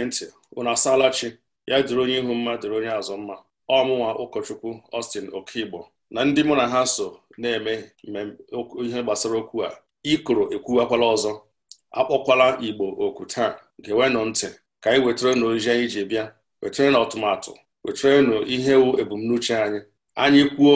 gee ntị unu chi- ya dịrị onye ihu mma dịrị onye azụ mma ọmụnwa ụkọchukwu Ọstin Okigbo na ndị mụ na ha so na-eme ihe gbasara okwu a ikoro ekwuwakwala ọzọ akpọkwala Igbo oku taa gewenụ ntị ka anyị wetarenu ozi anyị ji bịa wetarenu ọtụmatụ wetarenu ihe wu ebumnuche anyị anyị kwuo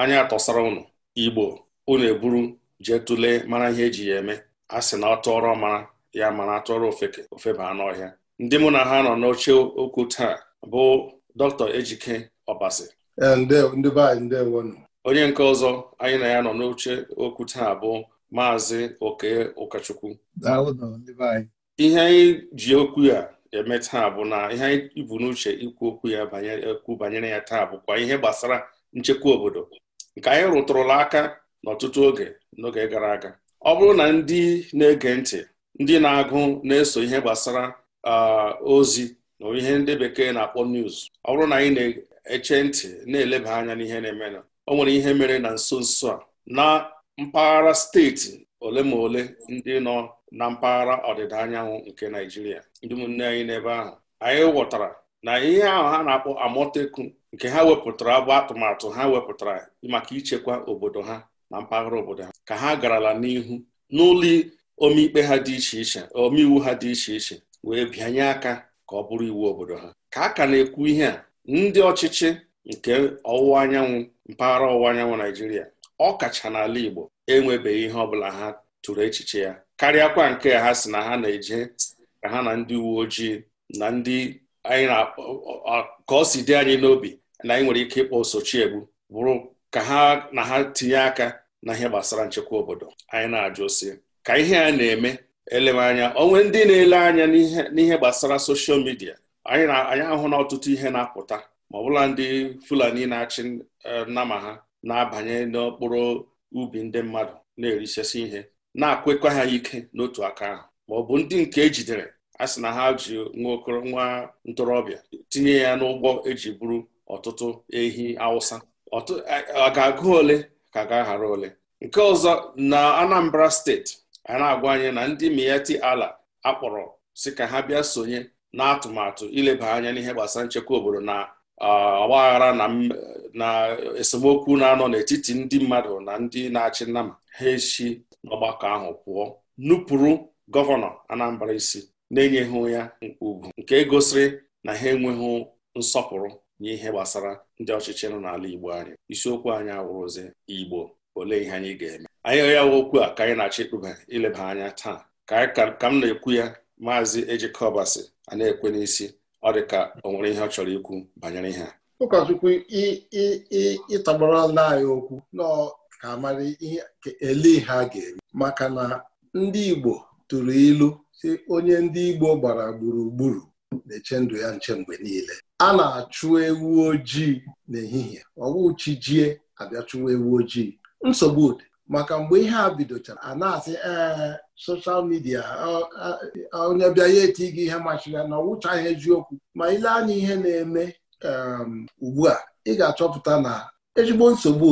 anyị atọsara ụnụ Igbo unu eburu jee tụlee mara ihe eji ya eme a sị na ọ tụọrọ mara ya mana tụọrọ ofeke ofeba anụ ọhịa ndị mụ na ha nọ n'oche okwu taa bụ dọkịta ejike ọbasi eh, onye nke ọzọ anyị na ya nọ n'oche okwu taa bụ maazị oke ụkọchukwu ihe anyị ji okwu ya eme taa bụ na ihe anyị bu n'uche ikwu okwu ya ekwu banyere ya taa bụkwa ihe gbasara nchekwa obodo nke anyị rụtụrụla aka n'ọtụtụ oge n'oge gara aga ọ bụrụ na ndị na-ege ntị ndị na-agụ na-eso ihe gbasara Uh, ozi na ihe ndị bekee na-akpọ news ọ bụrụ na anyị na-eche ntị na-eleba anya n'ihe na emenụ ọ o nwere ihe mere na nso nso a na mpaghara steeti ole ma ole ndị nọ na mpaghara ọdịda anyanwụ nke Naijiria ndị ụmụnne anyị n'ebe ahụ anyị ghọtara na ihe ahụ ha na-akpọ amoteku nke ha wepụtara bụ atụmatụ ha wepụtara maka ichekwa obodo ha na mpaghara obodo ha ka ha garala n'ihu n'ụlọ ha iche omeiwu ha dị iche iche wee bịanye aka ka ọ bụrụ iwu obodo ha ka a ka na-ekwu ihe a ndị ọchịchị nke ọwụwa anyanwụ mpaghara ọwụwa anyanwụ Naijiria ọ kacha n'ala Igbo enwebeghị ihe ọbụla ha tụrụ echiche ya karịakwa nke ha si na ha na-eje ka ha na ndị uwe ojii na ndị anyị ka ọ si dị anyị n'obi na anyị nwere ike ịkpọ Sochiegbu bụrụ ka ha na ha tinye aka na ihe gbasara nchekwa obodo anyị na-ajụ si ka ihe a na-eme elemanya onwe ndị na-ele anya n'ihe gbasara soshal midia anyị ahụ na ọtụtụ ihe na-apụta ma ọbụla ndị fulani na-achị e, nama ha na-abanye n'okporo ubi ndị mmadụ na-erisesi ihe na akwekwa ha ike n'otu aka ahụ ma ọ bụ ndị nke ejidere a sị na ha ji nwa ntorobịa tinye ya n'ụgbọ eji buru ọtụtụ ehi awụsa ọ e, ga-agụ ole ka ga ahara ole nke ọzọ na Anambra steeti a na-agwa anyị na ndị mieti ala akpọrọ si ka ha bịa sonye n'atụmatụ ileba anya n'ihe gbasara nchekwa obodo na ọgbaghara na esemokwu na-anọ n'etiti ndị mmadụ na ndị na-achị nnama ha esi n'ọgbakọ ahụ pụọ nupụrụ gọvanọ Anambra isi na-enyeghị ya ugwu nke gosiri na ha enweghị nsọpụrụ ihe gbasara ndị ọchịchị nọ n'ala Igbo anyị isiokwu anyị awụrụzi Igbo ole ihe anyị ga-eme anyị ya okwu a ka anyị na-achọ ịkpụba ileba anya taa ka ka m na-ekwu ya maazị ejikọbasị a na-ekwe n'isi ọ dị ka o nwere ihe ọ chọrọ ikwu banyere ihe a ụkọchukwu ịtọgbarala anyị okwu nọ ka mara ihe ele ha ga-eme maka na ndị Igbo tụrụ ilu si onye ndị Igbo gbara gburugburu na-eche ndụ ya nche mgbe niile a na-achụ ewu ojii n'ehihie ọwụ chi jie abịa chụwa ewu ojii nsogbu dị maka mgbe ihe a bidochara a na-asị ee soshal midia onye bịa ya eti gị ihe machiri ya na ọ wụchaghị eziokwu ma ile anya ihe na-eme um, ugbu a ị ga-achọpụta na ezigbo nsogbu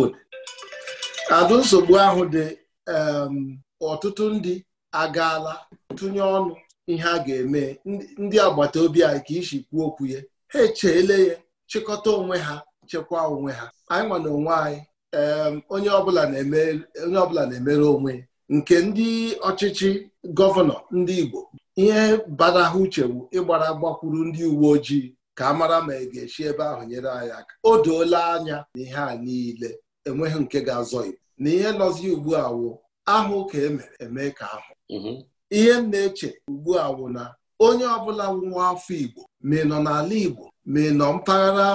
adụ nsogbu ahụ dị um, ọtụtụ ndị agaala tụnye ọnụ ihe a ga-eme ndị agbata obi anyị ka isi kwuo okwu ya ha echeele ya chịkọta onwe ha chekwaa onwe ha anyị nwa na onwe anyị onye ọbụla na-emere onwe nke ndị ọchịchị gọvanọ ndị Igbo ihe bara ha uchewu ịgbara gbakwuru ndị uwe ojii ka a mara ma ị e ga-esi ebe ahụ nyere anyị aka o doola anya na ihe a niile enweghị nke ga-azọ Igbo na ihe nọzi ugbu a wụ ahụ ka emere eme ka ahụ mhm. ihe m na-eche ugbu a na onye ọbụla nwa afọ Igbo ma ị nọ n'ala Igbo ma ị nọ mpaghara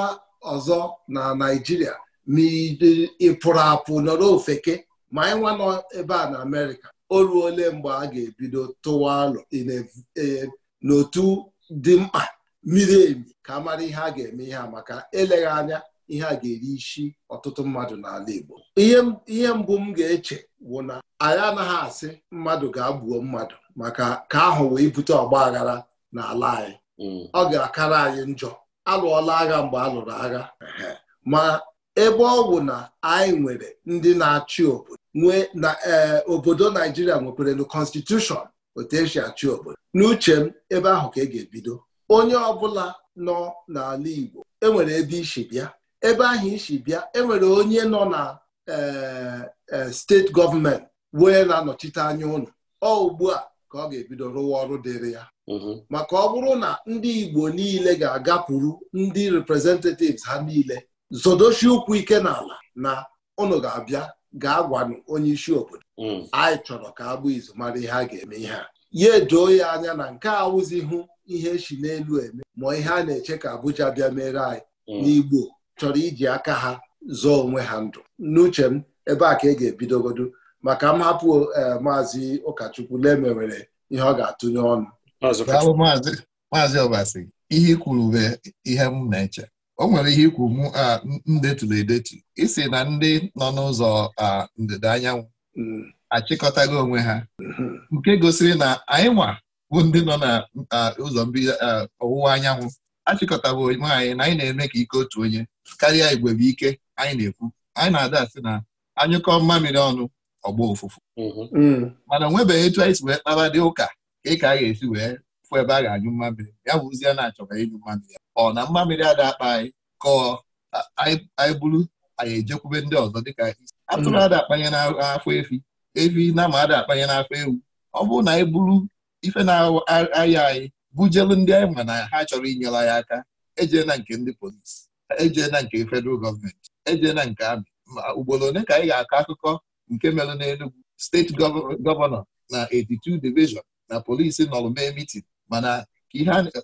ọzọ na Naịjirịa ị pụrụ apụ nọrọ ofeke ma anyị nwa nọ ebe a na Amerịka o ruole mgbe a ga-ebido tụwa alụ e, n'otu dị mkpa miri emi ka mara ihe a ga-eme ihe a maka eleghị anya ihe a ga-eri isi ọtụtụ mmadụ n'ala Igbo ihe mbụ m ga-eche bụ na anyị anaghị asị mmadụ ga-agbuo mmadụ maka ka ahụ wee bute ọgba aghara n'ala anyị mm. ọ ga-akara anyị njọ alụọla agha mgbe a lụrụ agha ma ebe ọ bụ na anyị nwere ndị na-achị obodo nwee na eh, obodo naijiria nwekwere na konstitushọn otu esi achị obodo n'uche m ebe ahụ ka ị e ga-ebido onye ọbụla nọ n'ala igbo enwere ebe isi bịa ebe ahụ isi bịa enwere onye nọ na eh, eh, steeti gọọmenti wee na-anọchite anya ụlọ ọ ugbu a ka ọ ga-ebido rụwa ọrụ dịrị ya mm-hmm. maka ọ bụrụ na ndị igbo niile ga-agapụrụ ndị representatives ha niile zodochi ụkwụ ike n'ala na ụnụ ga-abịa gaa gwanụ onye isi obodo hmm. anyị chọrọ ka agbụ izu mara ihe a ga-eme ihe a ya edoo ya anya na nke a wụzihụ ihe echi n'elu eme ma ihe a na-eche ka Abuja bịa mere anyị hmm. n'Igbo chọrọ iji aka ha zọọ onwe ha ndụ n'uche m ebe a ka e ga ebidogodo maka m hapụ eh, maazị ụkọchukwu lemewere ihe ọ ga-atụnye ọnụ maazị ọbasi ihe kwuru bụ ihe m na-eche o nwere ihe ikwu m na edetu isi na ndị nọ n'ụzọ ndịda anyanwụ mm. achịkọtago onwe ha mm-hmm. nke gosiri na anyị nwa bụ ndị nọ n'ụzọ ọwụwa anyanwụ achịkọtaba onwe anyị na anyị na-eme ka ike otu onye karịa igwe ike anyị na-ekwu anyị na-ada asị na anyụkọ mmamịrị ọnụ ọgbọ ụfụfụ mm-hmm. mm. mana o nwebeghị etu anyị si wee kpara dị ụka ka ị ka a ga-esi wee fụ ebe a ga-anyụ mmamịrị ya bụzie na-achọkwa ịnyụ ya, ọ na mmamịrị ada akpa anyị ka anyị bụrụ anyị ejekwube ndị ọzọ dịka atụrụ ada akpanye n'afọ efi efi na ma ada akpanye n'afọ ewu ọ bụrụ na anyị bụrụ ife na-aya anyị bujelu ndị anyị ma na ha chọrọ inyela anyị aka ejee na nke ndị polisi ejee na nke fedral gọọmenti ejee na nke amị ma ugboro ole ka anyị ga-akọ akụkọ nke mere n'Enugwu steeti gọvanọ na 82 division na polisi nọrọ mee mitin mana ka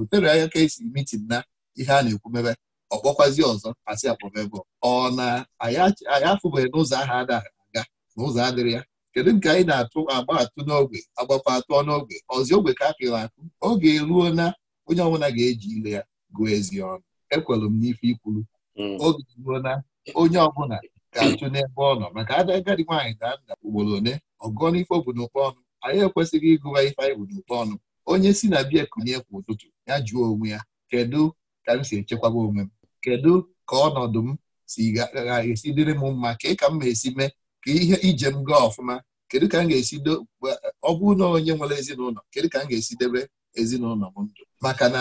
otere anya ka esi mitin na ihe a na-ekwu mebe ọkpọkwazi ọzọ asị akpọmebe ọ na anyị afụbeghị n'ụzọ ahụ adaghị aga na ụzọ adịrị ya kedu nke anyị na-atụ agba atụ n'ogbe agbakwa atụ n'ogbe ọzi ogbe ka akụrụ akụ oge eruo na onye ọbụla ga-eji ile ya gụọ ezi ọnụ ekwelụ m n'ife ikwuru hmm. oge eruo na onye ọbụla ga achụ n'ebe ọ nọ maka ada agadi nwaanyị daa nda ugboro one ọgụọ n'ife obodo ọnụ anyị ekwesịghị ịgụwa ife anyị bụ n'ụkpa ọnụ onye si na biya kunie kwa ụtụtụ ya jụọ onwe ya kedu ka m si echekwaba onwe m kedu ka ọnọdụ m si ga-esi dịrị m mma ka ka m ga-esi mee ka ihe ije m gaa ọfụma kedu ka m ga-esi ọ na onye nwere ezinụlọ kedu ka m ga-esi debe ezinụlọ m ndụ maka na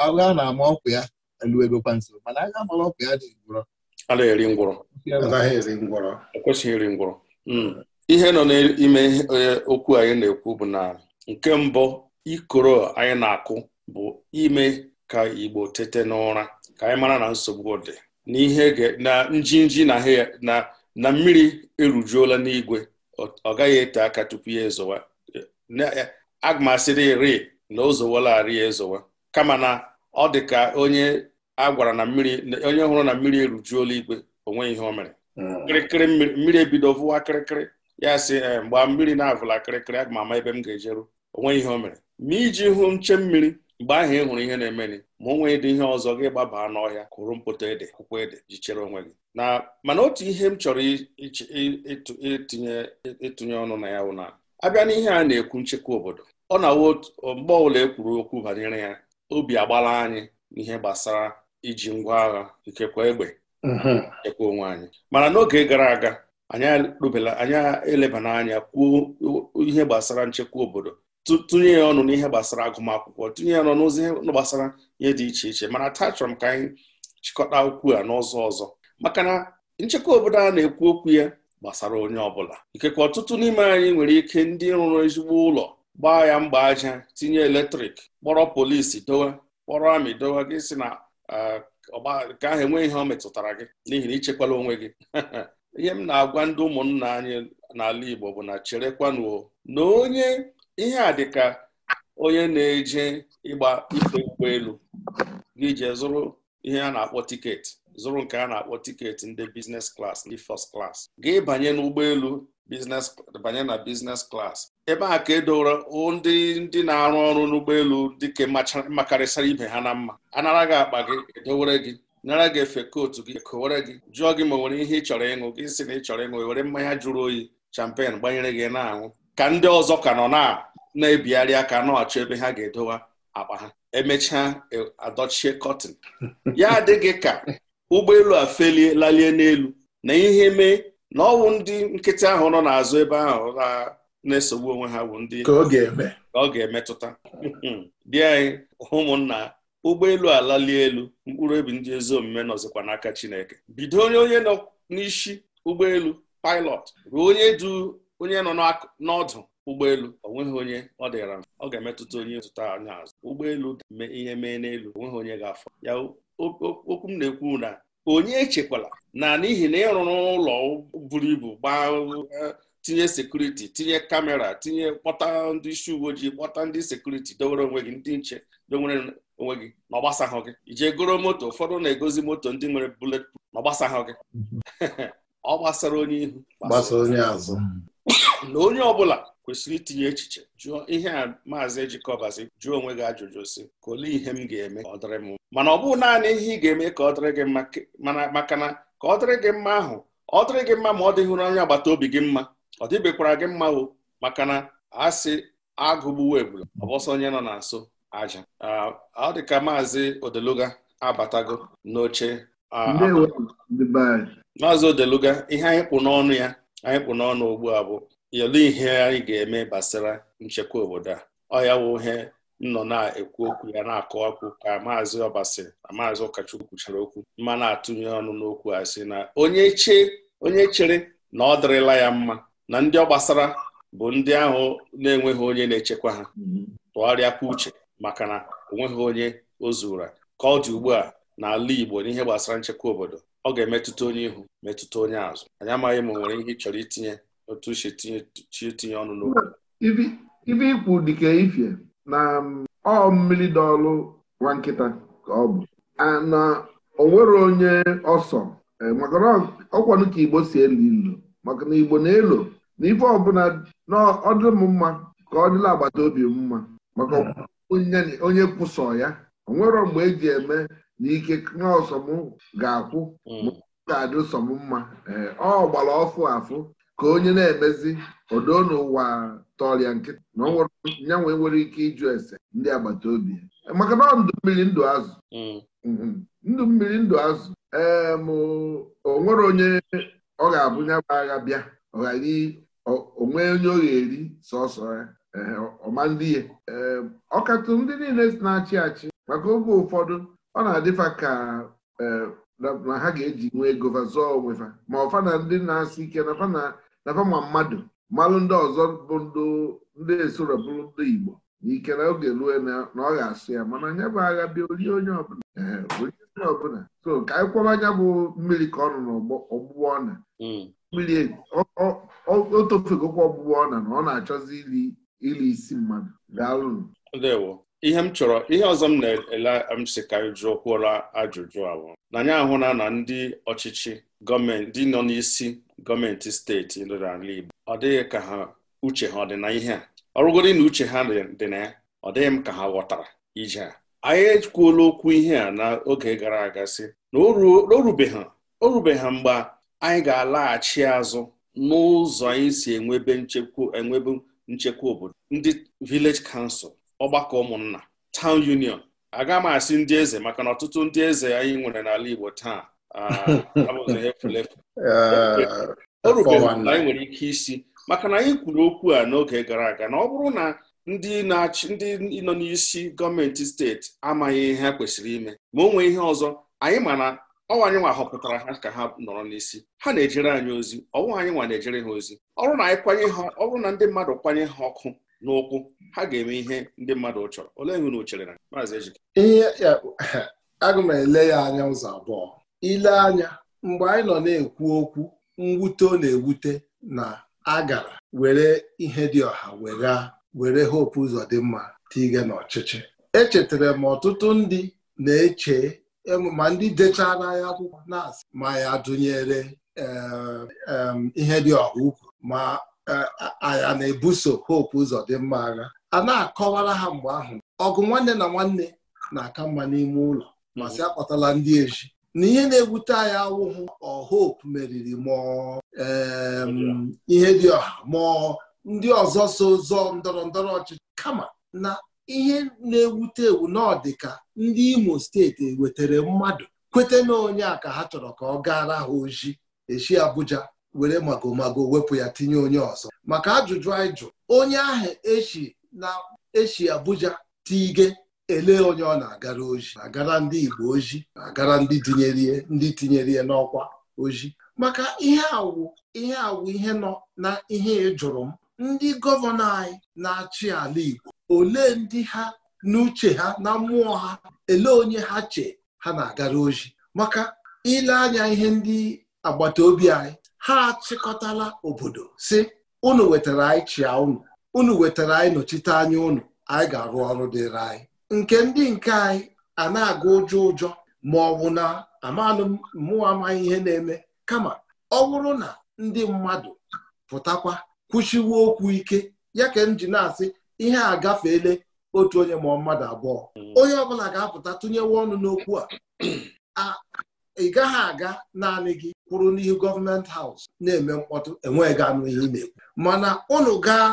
agha na-ama ọkụ ya eluebekwa nso mana agha mara ọkụ ya dị ngwụrọ a na-eri ngwụrọ ekwesịghị e iri ngwụrọ hmm. ihe nọ n'ime e, okwu anyị na-ekwu bụ na nke mbụ ikoro anyị na-akụ bụ ime ka Igbo tete n'ụra ka anyị mara na nsogbu dị n'ihe na njinji na na mmiri erujuola n'igwe ọ gaghị ete aka tupu ya ezowa e, aga asịrị ri na o ezowa kama na ọ dị ka onye a gwara na mmiri onye hụrụ na mmiri erujuola igwe onweghị ihe o mere hmm. kịrịkịrị mmiri ebido vụwa kịrịkịrị ya sị eh, mgbe mmiri na-avụla kịrịkịrị aga ama ebe m ga-ejeru onweghị ihe o mere ma iji hụ nche mmiri mgbe ahụ ị hụrụ ihe na-emeni ma o nwee dị ihe ọzọ gị gbabaa n'ọhịa kụrụ mpụta ede akwụkwọ ede ji chere onwe gị na mana otu ihe m chọrọ ịtụnye ọnụ na ya wụ na abịa n'ihe a na-ekwu nchekwa obodo ọ na-awụ mgbe ọbụla ekwuru kwuru okwu banyere ya obi agbala anyị n'ihe gbasara iji ngwa agha ikekwa egbe mm-hmm. nchekwa onwe anyị mana n'oge gara aga anyị elebana anya kwuo ihe gbasara nchekwa obodo tụnye ya ọnụ n'ihe gbasara agụmakwụkwọ tụnye ya ọnụ n'ụzọ gbasara ihe dị iche iche mana taa chọrọ m ka anyị chịkọta okwu a n'ụzọ ọzọ maka na nchekwa obodo a na-ekwu okwu ya gbasara onye ọbụla ikekwe ọtụtụ n'ime anyị nwere ike ndị rụrụ ezigbo ụlọ gbaa ya mgba aja tinye eletrik kpọrọ polisi dowe kpọrọ amị dowe gị si na e, nke ahụ enweghị ihe ọ metụtara gị n'ihi na ichekwala onwe gị ihe m na-agwa ndị ụmụnna anyị n'ala Igbo bụ na cherekwanuo na onye ihe a dị ka onye na-eje ịgba ife ụgbọelu gị je zụrụ ihe a na-akpọ tiketi zụrụ nke a na-akpọ tiketi ndị bizines klas ndị fọst klas gị banye n'ụgbọelu banye na biznes klas ebe a ka edowere ndị ndị na-arụ ọrụ n'ụgbọelu dị ka makarịsịrị ibe ha na mma anara gị akpa gị edowere gị nara gị efe kootu gị e kowere gị jụọ gị ma nwere ihe ị chọrọ ịṅụ gị si na ị chọrọ ịṅụ e were mmanya jụrụ oyi champen gbanyere gị na-aṅụ ka ndị ọzọ ka nọ na-ebigharị aka na-achọ ebe ha ga-edowa akpa ha emechaa e, adọchie kọtin ya adịghị ka ụgbọelu a felie lalie n'elu na ihe mee na ọwụ ndị nkịtị ahụ nọ n'azụ ebe ahụ na-esogbu onwe ha bụ ndị ka ọ ga-emetụta bịa hmm. anyị ụmụnna ụgbọelu alalie elu mkpụrụ obi ndị ezi omume nọzikwa n'aka Chineke bido onye onye nọ n'isi ụgbọelu pilot ruo onye du onye nọ n'ọdụ ụgbọelu onweghị onye ọ dịra ọ ga-emetụta onye zụta anya azụ ụgbọelu mee ihe mee n'elu onweghị onye ga-afọ ya okwu m na-ekwu na onye echekwala na n'ihi na ịrụrụ ụlọ buru ibu gbaa tinye sekuriti tinye kamera tinye kpọta ndị isi uwe ojii kpọta ndị sekuriti dowere onwe gị ndị nche dowere onwe gị na ọgbasahụ gị ije goro moto ụfọdụ na-egozi moto ndị nwere bulet na ọgbasahụ gị mhm. ọ gbasara onye ihu gbasara onye azụ na onye ọbụla kwesịrị itinye echiche jụọ ihe a maazị ejikọbazi jụọ onwe gị ajụjụ si kole ihe m ga-eme ka ọ dịrị m mana ọ bụghị naanị ihe ị ga-eme ka ọ dịrị gị mma maka na ka ọ dịrị gị mma ahụ ọ dịrị gị mma ma ọ dịghịrụ onye agbata obi gị mma ọ dịbekwara gị mma o maka na a sị agụgbuwo egbula ọbọsọ onye nọ na nso aja ọ dị ka maazị odeluga abatago n'oche maazị Odeluga ihe anyị kpụ n'ọnụ ya anyị kpụ n'ọnụ ugbu a bụ yelu ihe anyị ga-eme gbasara nchekwa obodo a ọ ya wụ ihe nnọ na-ekwu okwu ya na-akọwakwu ka maazị Ọbasi na maazị Ụkachukwu kwuchara okwu mma na-atụnye ọnụ n'okwu a sị na onye chee onye chere na ọ dịrịla ya mma na ndị ọ gbasara bụ ndị ahụ na-enweghị onye na-echekwa ha tụgharịakwa uche maka na onweghị onye o zura ka ọ dị ugbu a n'ala Igbo n'ihe gbasara nchekwa obodo ọ ga-emetụta onye ihu metụta onye azụ anyị amaghị ma nwere ihe ị chọrọ itinye otu uche chi tinye ọnụ n'okwu ibe ikwu dịka ifie na um, ọ mmiri dọọlụ nwa nkịta ka ọ bụ na onwere onye ọsọ e, maka na ọkwanụ ka igbo si elu ilu maka na igbo na-elo na ife ọbụla na ọdị m mma ka ọ dịla agbata obi mma maka onye kwụsọ ya onwere mgbe eji eme na ike nọọsọm ga-akwụ hmm. ma ga-adị sọm mma eh, ọ gbara ọfụ afụ ka onye na-emezi odo n'ụwa tọrịa nkịta na nyanwe nwere ike ịjụ ese ndị agbata obi eh, maka na ndụ mmiri ndụ azụ hmm. mm-hmm. ndụ mmiri ndụ azụ ee eh, o nwere onye ọ ga-abụ nya agha bịa ọ onwe onye ọ ga-eri sọsọ ya ọma ndị ya ọkatụ ndị niile na-achị achị maka oge ụfọdụ ọ na-adịfa ka e, na ha ga-eji nwee ego zụọ onwefa ma ọfa na ndị na-asị ike nafa ma mmadụ malụ ndị ọzọ bụ ndị esoro bụrụ ndị Igbo na ike na oge rue na ọ ga-asụ ya mana anya bụ agha bịa orie onye ọbụla e, so ka anyị anya bụ mmiri ka ọ n'ọgbụgbọ ọna hmm. mmiri e, o tofegokwa ọgbụgbọ ọna na ọ na-achọzi iri isi mmadụ daalụnụ ihe m chọrọ ihe ọzọ m na-ele m si ka jụọ kwụọla ajụjụ ahụ na anyị ahụla na ndị ọchịchị gọọmenti ndị nọ n'isi gọọmenti steeti ala Igbo ọ dịghị ka ha uche ha ọ dị na ihe a ọrụgodi na uche ha dị na ya ọ dịghị m ka ha ghọtara ije a anyị ekwuola okwu ihe a n'oge gara aga si na o ha mgbe anyị ga-alaghachi azụ n'ụzọ anyị si enwebe nchekwa obodo ndị vileji kansụl. ọgbakọ ụmụnna town union aga m asị ndị eze maka na ọtụtụ ndị eze anyị nwere n'ala Igbo taa ah, abụghị eh, o rubeghị anyị nwere ike isi maka na anyị kwuru okwu a n'oge gara aga na ọ bụrụ na ndị na-achị ndị nọ n'isi gọọmenti steeti amaghị ihe kwesịrị ime ma o nwee ihe ọzọ anyị ma na anyị nwa họpụtara ha ka ha nọrọ n'isi ha na-ejere anyị ozi ọnwa anyị nwa na-ejere ha ozi ọrụ na anyị kwanye ha na ndị mmadụ kwanye ha ọkụ n'ụkwụ ha ga-eme ihe ndị mmadụ chọrọ olee nwe na na maazị ihe aga m ele ya anya ụzọ abụọ ile anya mgbe anyị nọ na-ekwu okwu mwute ọ na-ewute na agara were ihe dị ọha were were hope ụzọ dị mma tige n'ọchịchị echetara m ọtụtụ ndị na-eche ma ndị dechara ya akwụkwọ na-asị ma ya dụnyere ihe dị ọha ukwu ma a na-ebuso hope ụzọ dị mma agha a na-akọwara ha mgbe ahụ ọgụ nwanne na nwanne na-aka mma n'ime ụlọ masị akpatala ndị eji na ihe na-ewute anya awụghụ ọhope meriri mụọ ihe dị ọha mụọ ndị ọzọ so zọ ndọrọ ndọrọ ọchịchị kama na ihe na-ewute ewu n'ọdịka ndị Imo steeti e wetara mmadụ kwete na onye a ka ha chọrọ ka ọ gaara ha oji echi Abuja were magomago wepụ ya tinye onye ọzọ maka ajụjụ anyị jụ onye ahụ echi na echi Abuja tige ele onye ọ na-agara oji agara ndị Igbo oji agara ndị tinyere ndị tinyere ya n'ọkwa oji maka ihe awụ ihe awụ ihe nọ na ihe ịjụrụ m ndị gọvanọ anyị na-achị ala Igbo olee ndị ha n'uche ha na mmụọ ha ele onye ha che ha na-agara oji maka ile anya ihe ndị agbata obi anyị ha achịkọtala obodo si unu wetara anyị chia unu unu wetara anyị nọchite anya unu anyị ga-arụ ọrụ dịrị anyị nke ndị nke anyị a na-aga ụjọ ụjọ ma ọ bụ na amanụ mmụọ amaghị ihe na-eme kama ọ bụrụ na ndị mmadụ pụtakwa kwụchiwe okwu ike ya ka m ji na-asị ihe a gafeele otu onye ma mmadụ abụọ onye ọbụla ga-apụta tụnyewe ọnụ n'okwu a ị gaghị aga naanị gị kwụrụ n'ihu gọọmenti haus na-eme mkpọtụ enweghị anụ ihe na-ekwu mana ụnụ gaa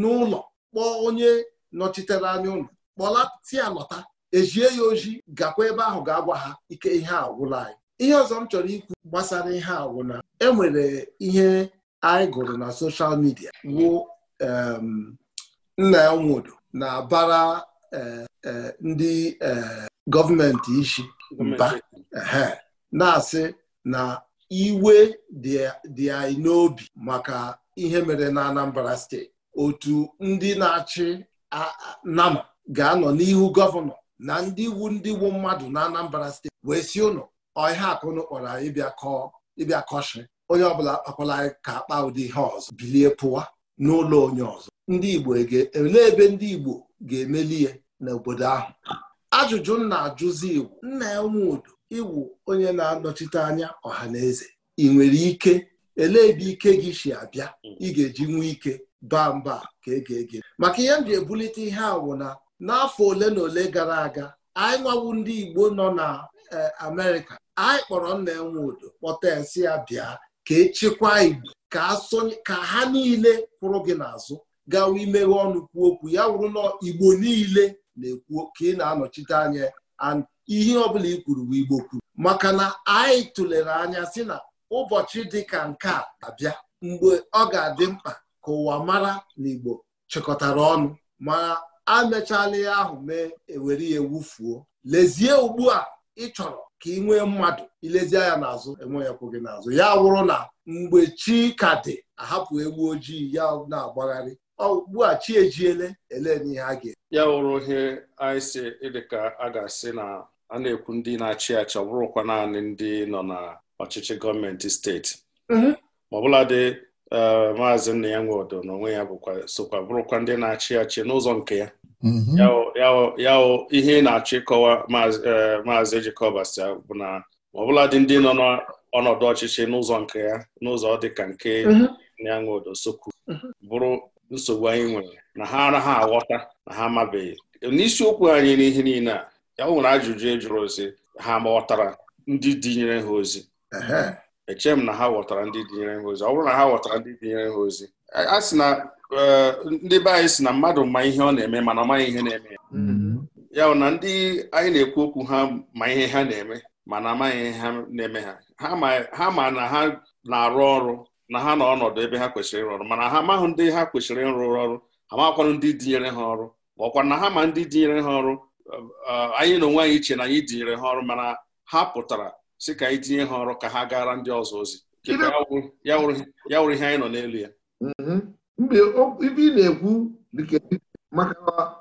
n'ụlọ kpọọ onye nọchitere anya ụlọ kpọlati ya lọta ejie ya ojii gakwa ebe ahụ ga-agwa ha ike ihe agwụla anyị ihe ọzọ m chọrọ ikwu gbasara ihe agwụna enwere ihe anyị gụrụ na soshal midia wụ nna ya nwodo na-abara eh, eh, ndị eh, gọọmenti isi mba na-asị na iwe dị anyị n'obi maka ihe mere na Anambra steeti otu ndị na-achị nama ga-anọ n'ihu gọvanọ na ndị iwu ndị iwu mmadụ na Anambra steeti wee si ụnụ ọhịa akụnụ kpọrọ anyị ịbịa kọshị onye ọbụla akpọla ka akpa ụdị ihe ọzọ bilie pụwa n'ụlọ onye ọzọ ndị Igbo ebe ndị Igbo ga-emeli ya n'obodo ahụ ajụjụ m na-ajụzi iwu. nna ya nwe udo ịwụ onye na-anọchite anya ọha na eze ị nwere ike elee ebe ike gị si abịa ị ga-eji nwee ike baa mba ka ege ege maka ihe m ji ebulite ihe a na n'afọ ole na ole gara aga anyị nwawu ndị Igbo nọ na e, Amerịka anyị kpọrọ nna enwe udo kpọta esi ya bịa ka echekwa Igbo ka ha niile kwụrụ gị n'azụ gawa imeghe ọnụ kwuo okwu ya wụrụ na Igbo niile na-ekwu ka ị na-anọchite anya ihe ọbụla i kwuru bụ Igbo kwuru maka na anyị tụlere anya si na ụbọchị dịka nke a abịa mgbe ọ ga-adị mkpa ka ụwa mara na Igbo chịkọtara ọnụ ma amechala ihe ahụ mee ewere ya ewufuo lezie ugbu a ị chọrọ ka ị nwee mmadụ ilezie ya n'azụ enweghịkwu gị n'azụ ya wụrụ na mgbe chi ka dị ahapụ egwu ojii ya na-agbagharị ugbu a chi ejiele ele n'ihe a ga-eme ya wụrụ ihe anyị si ka a ga-asị na a na-ekwu ndị na-achị achị ọ bụrụkwa naanị ndị nọ na ọchịchị gọọmenti steeti mm-hmm. ma ọbụladị eh, maazị nna ya nwe odo onwe ya bụkwa sokwa bụrụkwa ndị na-achị achị n'ụzọ nke ya mm-hmm. yawo ihe na-achọ ịkọwa maazị eh, Jekọbas bụ na ọbụladị ndị nọ n'ọnọdụ ọchịchị n'ụzọ nke ya n'ụzọ dịka nke ya mm-hmm. nwe odo sokwu bụrụ nsogbu anyị nwere na ha ara ha aghọta na ha amabeghị n'isiokwu anyị n'ihe niile a ya nwere ajụjụ e jụrụ ozi ha ma ghọtara ndị dinyere ha ozi eche m na ha ghọtara ndị dinyere ha ozi ọ bụrụ na ha ghọtara ndị dinyere ha ozi a sị na e, ndị be anyị si na mmadụ ma ihe ọ na-eme mana ọ maghị ihe na-eme mm-hmm. ya na ndị anyị na-ekwu okwu ha ma ihe ha na-eme mana amaghị ihe ha na-eme ha ha ma na ha na-arụ ọrụ na ha na ọnọdụ ebe ha kwesịrị ịrụ ọrụ mana ha amaghị ndị ha kwesịrị ịrụ ọrụ ha makwanụ ndị dinyere ha ọrụ ma ọkwa na ha ma ndị dinyere ha ọrụ anyị na onwe anyị iche na anyị tinyere ha ọrụ mana ha pụtara sị ka anyị tinye ha ọrụ ka ha gara ndị ọzọ ozi ya wụrụ ihe anyị nọ n'elu ya mhm. mgbe ibe ị na-ekwu dịka maka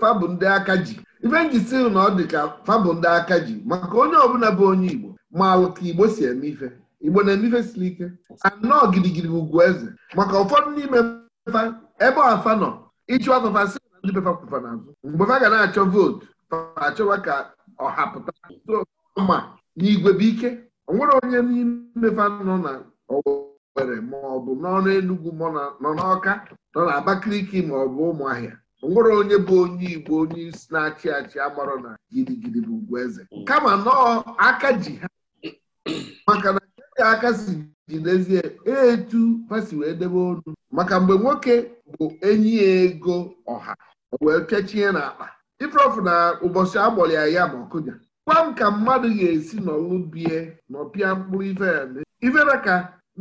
fabụ ndị aka ji ife njisi na ọ dị ka fabụ ndị aka ji maka onye ọbụla bụ onye Igbo ma ka Igbo si eme ife Igbo na-eme ife siri ike anọ gidigidi ugwu eze maka ụfọdụ n'ime ebe ọfa nọ ịchụ afafa. si ndị befa n'azụ mgbe fa ga na-achọ vootu achọwa ka ọha pụta ma n'igwe bụ ike o nwere onye n'ime fa nọ na Owerri ma n'ọnụ enugwu nọ n'Ọka nọ na Abakaliki ma ọ bụ Ụmụahịa nwere onye bụ onye Igbo onye isi na-achị achị amarọ na gidigidi bụ Ugwueze kama nọọ aka ji ha maka na aka si ji n'ezie etu fasi wee debe ọnụ maka mgbe nwoke bụ enyi ego ọha wee kechie n'akpa ifeofu na ụbọchị agbọrọ ya ya ma ọkụja gwa m ka mmadụ ga-esi n'ọlụ bie n'ọpịa mkpụrụ ife na ka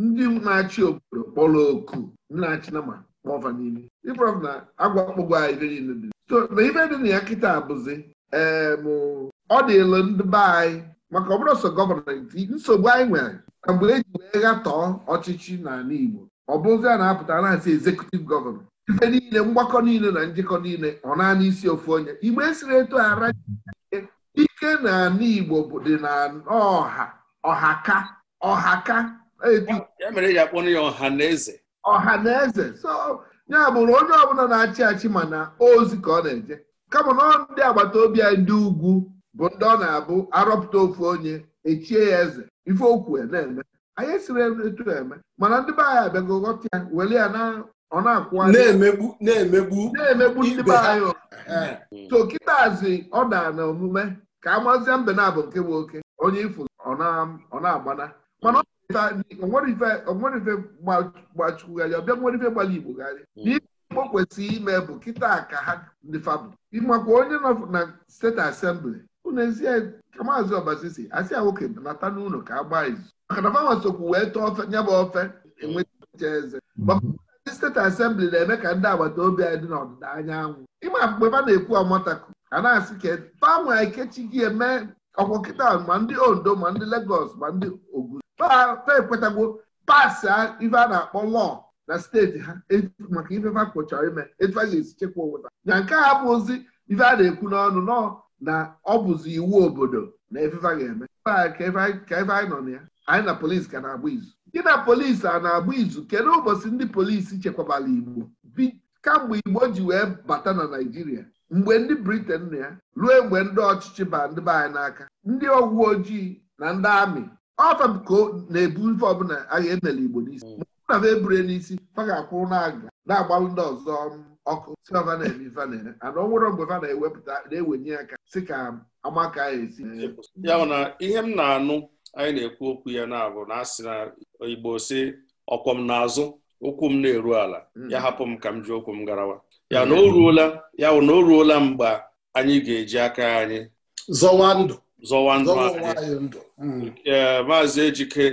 ndị na-achị obodo kpọrọ oku ndị na-achị na ma ọfa niile ifeofu na agwa kpụgwọ anyị ife niile dị so na ife dị na ya kịta abụzi ee mụ ọ dịlụ ndị be anyị maka ọ bụrụ sọ gọọmenti nsogbu anyị nwere na mgbe e ji wee ghatọọ ọchịchị n'ala Igbo ọ bụzi a na-apụta na-asị ezekutiv gọvanọ ife niile mgbakọ niile na njikọ niile ọ naanị isi ofu onye igbe esiri eto ara ike na ala igbo bụ dị na ọha ọhaka ọhaka ọha na eze ọha na eze so ya bụrụ onye ọbụla na-achị achị mana ozi ka ọ na-eje kama na ndị agbata obi anyị ndị ugwu bụ ndị ọ na-abụ arọpụta ofu onye echie ya eze ife okwu na-eme anyị esiri etu eme mana ndị be anyị abịago ghọta ya were ya na ọ na-akwụ na-emegbu na-emegbu na-emegbu ndị be anyị hmm. so kịtazi ọ daa na omume ka amazia mbe na-abụ nke nwoke. onye ifu ọ na-agbana mana onwere ife gbachukwugharịa ọbịa nwere ife gbara igbo gharị hmm. n'ihe o kwesịrị ime bụ kịta ka ha ndị fabụ ịmakwa onye nọ na steeti asembli unu ezie ka maazị ọbasi si asị ya nwoke nata n'ụlọ ka a gbaa izu maka na fanwa sokwu wee tọọ ofe bụ ofe enweta eze hmm. steeti asembli na-eme ka ndị agbata obi anyị dị n'ọdịda anyanwụ ịma mgbe ha na-ekwu ọmataku a na-asị ka banwe ekechi gị eme ọkwọkịta ma ndị ondo ma ndị legos ma ndị ogun ta ekwetagwo pasị ife a na-akpọ lọọ na steeti ha maka ife ha kpochara ime etu a ga-esi chekwa obodo na nke a bụ ozi ife a na-ekwu n'ọnụ nọ na ọ bụzi iwu obodo na efefa ga-eme ka ife anyị nọ na ya anyị na polisi ka na-agba izu gị na polisi a na-agba izu kedu ụbọchị ndị polisi chekwabara igbo kamgbe igbo ji wee bata na naijiria mgbe ndị briten na ya ruo mgbe ndị ọchịchị ba ndị be anyị n'aka ndị ọgwụ ojii na ndị amị ọtọko na-ebu ife ọbụla agha enele igbo n'isi mm. na m ebure n'isi fa ga na-aga na-agbalụ ndị ọzọ ọkụ si ọva na-eme na-ere ana ọnwụrụ mgbe fa na-ewepụta na-ewenye aka si ka amaka ya esi ya ihe m na-anụ anyị na-ekwu okwu ya na-abụ na asị na igbo si ọkwọ m n'azụ ụkwụ m na-eru ala hmm. ya hapụ m ka m ji okwu m garawa hmm. ya na o ruola ya na o ruola mgbe anyị ga-eji aka anyị zọwa ndụ zọwa ndụ anyị hmm. maazị ejike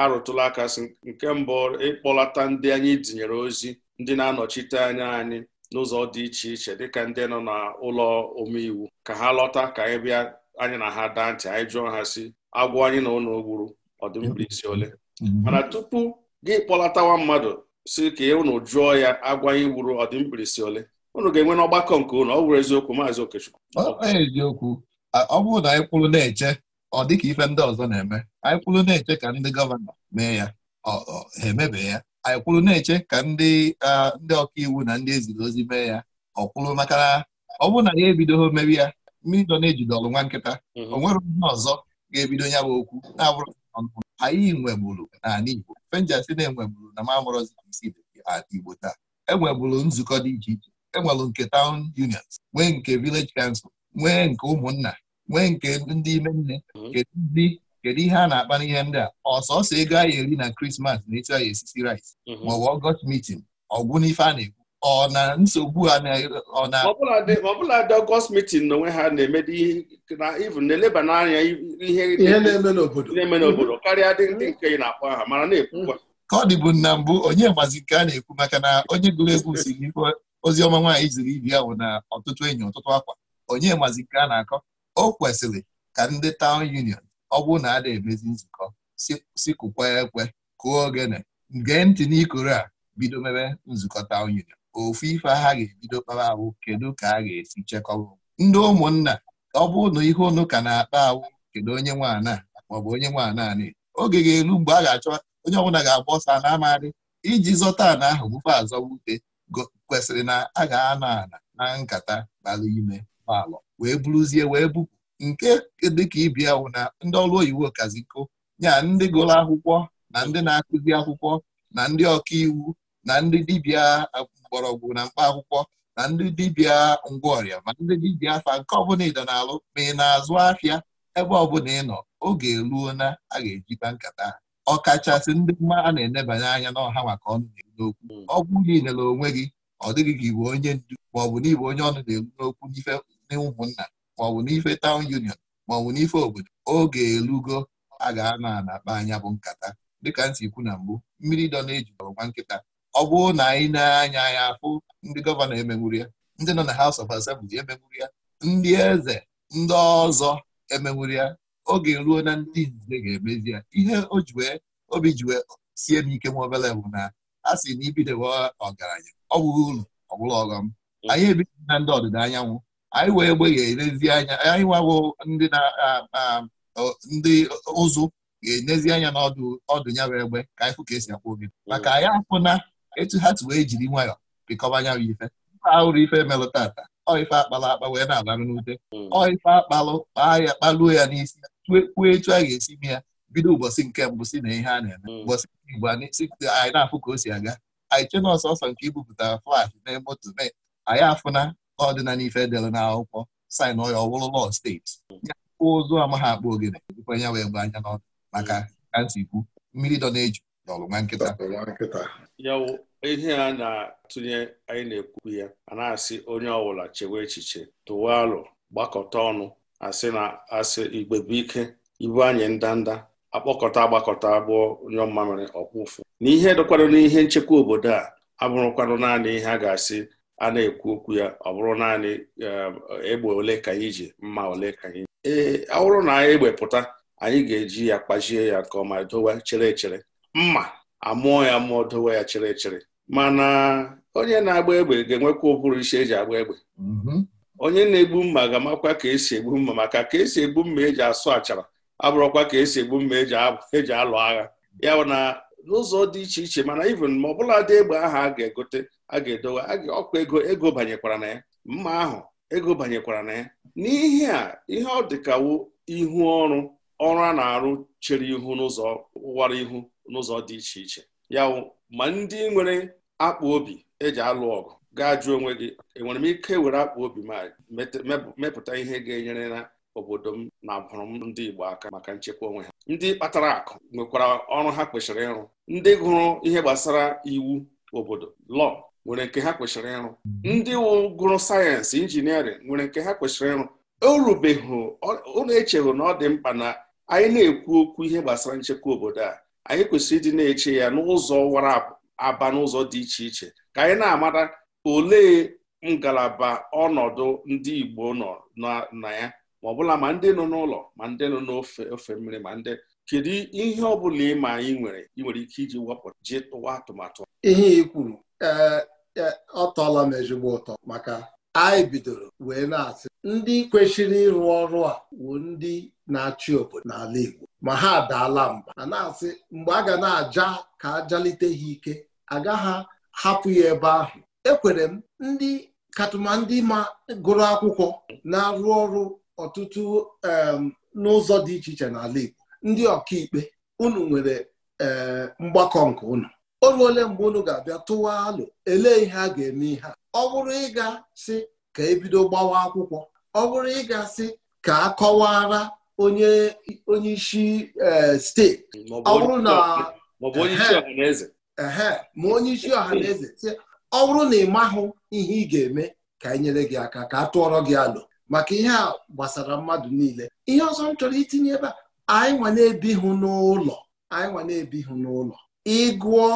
arụtụla aka sị nke mbụ ịkpọlata ndị anyị tinyere ozi ndị na-anọchite anya anyị n'ụzọ dị iche iche dịka ndị nọ n'ụlọ omeiwu ka ha lọta ka anyị bịa anyị na ha daa ntị anyị jụọ ha si agwọ anyị na ụlọ gburu ọdịmkpirisi ole mhm. mana tupu gị kpọlatawa mmadụ si ka e, unu jụọ ya agwa anyị gburu ọdịmkpirisi ole unu ga-enwe n'ọgbakọ nke ụnụ ọ bụrụ eziokwu maazị Okechukwu eziokwu ọ bụrụ na anyị kwụrụ na-eche ọ dịka ife ndị ọzọ na-eme anyị kwụrụ na-eche ka ndị gọvanọ mee ya ha emebe ya anyị kwụrụ na-eche ka ndị ndị ọkaiwu na ndị eziri ozi mee ya ọ kwuru maka ọ bụrụ na ya ebidoghị mebi ya mmiri dọ na-ejide ọrụ nwa nkịta mhm. o nwere ihe ọzọ ga-ebido ya bụ okwu na-abụrụ anyị nweburu n'ala Igbo fenjasị na-enweburu na mamụrọzamsid Igbo taa enweburu nzukọ dị iche iche e nwere nke town unions nwee nke vileji council nwee nke ụmụnna nwee nke ndị ime nne mhm. kedu ndị kedu ihe a na-akpa n'ihe ndị a ọsọsọ ego anyị eri na krismas na etu anyị esisi rice mhm. maọbụ ọgọst meeting ọgwụ n'ife a na-ekwu ọ na nsogbu ha ọ na ọbụla dị ọgọst mitin na onwe ha na-emedi na even na-eleba n'anya ihe na-eme n'obodo na-eme n'obodo karịa dị nke ị na-akpọ aha mara na-ekwukwa ka ọ dịbụ na mbụ onye gbazi nke a na-ekwu maka na onye gụrụ egwu si n'ife ozi ọma nwaanyị ziri ibi ahụ na ọtụtụ enyi ọtụtụ akwa onye gbazi nke a na-akọ o kwesịrị ka ndị taụn union ọ bụrụ na a na-emezi nzukọ sikụkwa ekwe kụọ ogene gee ntị n'ikoro a bido mebe nzukọ taụn union ofu ife ha ga-ebido kpara awụ kedu ka a ga-esi chekọba ndị ụmụnna ọ bụ na ihe unu ka na-akpa awụ kedu onye nwaana maọbụ onye nwaana anị oge ga-eru mgbe a ga-achọ onye ọbụla ga-agba ọsọ na amarị iji zọta ana ahụ bụfe azọwute kwesịrị na a ga-ana ala na nkata bara ime gbalọ wee buruzie wee bupụ nke dịka ibia wụ na ndị ọrụ oyiwu okaziko nya ndị gụrụ akwụkwọ na ndị na-akụzi akwụkwọ na ndị ọka iwu na ndị dibịa mgbọrọgwụ na mkpa akwụkwọ na ndị dibịa ngwaọrịa ma ndị dibịa afa nke ọbụla ịdọ na-alụ ma ị na-azụ afịa ebe ọbụla ị nọ oge eluo na a ga-ejikwa eji nkata ọkachasị ndị mma a na-enebanye anya n'ọha maka ọnụ na-eru n'okwu hmm. ọgwụ gị nyere onwe gị ọ dịghị ka iwe onye ndu maọbụ n'ibụ onye ọnụ na-eru n'okwu n'ife ụmụnna maọbụ n'ife taụn union maọbụ n'ife obodo oge elugo a ga-ana akpa anya bụ nkata dịka ntị ikwu na mbụ mmiri dọ na nwa nkịta ọ bụrụ na anyị na-anya ya afụ ndị gọvanọ emegburu ya ndị nọ na haus of Assembly emegburu ya ndị eze ndị ọzọ emegburu ya oge ruo na ndị nze ga-emezi ya ihe o obi jiwe sie m ike nwa obele bụ na a sị na ibidowe ọgaranya ọ bụghị ụlọ ọbụla ọghọm anyị ebido na ndị ọdịda anyanwụ anyị wee gbeghe anya anyị nwawo ndị na ndị ụzụ ga-enezi anya n'ọdụ ọdụ ya bụ egbe ka anyị fụ ka esi akwụ oge maka anyị afụna etu ha wee jiri nwayọọ pịkọba anya bụ ife ahụrụ ife melụ tata ọife akpalụ akpa wee na-agbarụ n'ute hmm. ọife akpalụ kpaa ya kpaluo ya n'isi kwuo etu a ga-esi mee ya bido ụbọchị nke mbụ si na ihe a na-eme hmm. ụbọchị nke igbo anyị na-afụ ka o si aga anyị na ọsọsọ nke ibupụtara flash na moto mee anyị afụna ọdịna n'ife dere akwụkwọ sin ọya ọwụrụ lọ steeti ya ụzụ amaghị akpa ogene dịkwa ya wee gba anya n'ọdụ maka hmm. kantikwu mmiri dọ na-eju ọlụnwe nkịta ya wụ ihe a na-atụnye anyị na-ekwu ya a na-asị onye ọbụla chewe echiche tụwa alụ gbakọta ọnụ asị na asị igbe bụ ike ibu anyị ndanda akpọkọta agbakọta abụọ nyọ mmamịrị ọkpụfụ n'ihe dịkwanụ n'ihe nchekwa obodo a abụrụkwanụ naanị ihe a ga-asị a na-ekwu okwu ya ọ bụrụ naanị eh, egbe ole ka anyị ji mma ole ka anyị ee ọ bụrụ na anyị egbe pụta anyị ga-eji ya kpachie ya nke ọma dowe chere echere mma amụọ ya mụọ dowe ya chịrị chịrị mana onye na-agba egbe ga-enwekwa ụbụrụ e ji agba egbe mhm. onye na-egbu mma ga-amakwa ka esi egbu mma maka ka esi egbu mma eji asụ achara abụrụkwa ka esi egbu mma eji e alụ agha ya na n'ụzọ dị iche iche mana even ma bụla dị egbe ahụ a ga-egote a ga-edowe ọkwa ego ego banyekwara na ya mma ahụ ego banyekwara na ya n'ihi a ihe ọ dịkawo ihu ọrụ ọrụ a na-arụ chere ihu n'ụzọ ụwara ihu n'ụzọ dị iche iche ya ma ndị nwere akpa obi eji alụ ọgụ gaa jụọ onwe gị enwere m ike were akpa obi ma mepụta ihe ga-enyere na obodo m na abụrụ m ndị Igbo aka maka nchekwa onwe ha ndị kpatara akụ nwekwara ọrụ ha kwesịrị ịrụ ndị gụrụ ihe gbasara iwu obodo lọọ nwere nke ha kwesịrị ịrụ ndị gụrụ sayensị injiniarịn nwere nke ha kwesịrị ịrụ o ụlọ na-echeghị na ọ dị mkpa na anyị na-ekwu okwu ihe gbasara nchekwa obodo a anyị kwesịrị ịdị na-eche ya n'ụzọ wara aba n'ụzọ dị iche iche ka anyị na-amata olee ngalaba ọnọdụ ndị Igbo nọ na ya ma bụla ma ndị nọ n'ụlọ ma ndị nọ n'ofe ofe mmiri ma ndị kedu ihe ọ bụla ịma anyị nwere ị nwere ike iji wepụta ji tụwa atụmatụ ihe ị ee, e, ọ tọọla m ezigbo ụtọ maka anyị bidoro wee na-asị ndị kwesịrị ịrụ ọrụ a bụ ndị na-achị obodo n'ala Igbo ma ha adaala mba a na-asị mgbe a ga na-aja ka ajalite ha ike agaghị hapụ ya ebe ahụ ekwere m ndị katụma ndị ma gụrụ akwụkwọ na-arụ ọrụ ọtụtụ n'ụzọ dị iche iche n'ala Igbo ndị ọkaikpe unu nwere eh, mgbakọ nke unu o ruole mgbe unu ga-abịa tụwa alụ elee ihe a ga-eme ihe a ọ bụrụ ịga sị ka ebido gbawa akwụkwọ ọ bụrụ ịga sị ka a kọwara onye onye e, steeti ọ bụrụ na ma onye isi ọhaneze ọ bụrụ na ị mahụ ihe ị ga-eme ka anyị nyere gị aka ka a tụọrọ gị alụ maka ihe a gbasara mmadụ niile ihe ọzọ m chọrọ itinye ebe a anyị nwa na-ebihụ n'ụlọ anyị nwa na-ebihụ n'ụlọ ịgụọ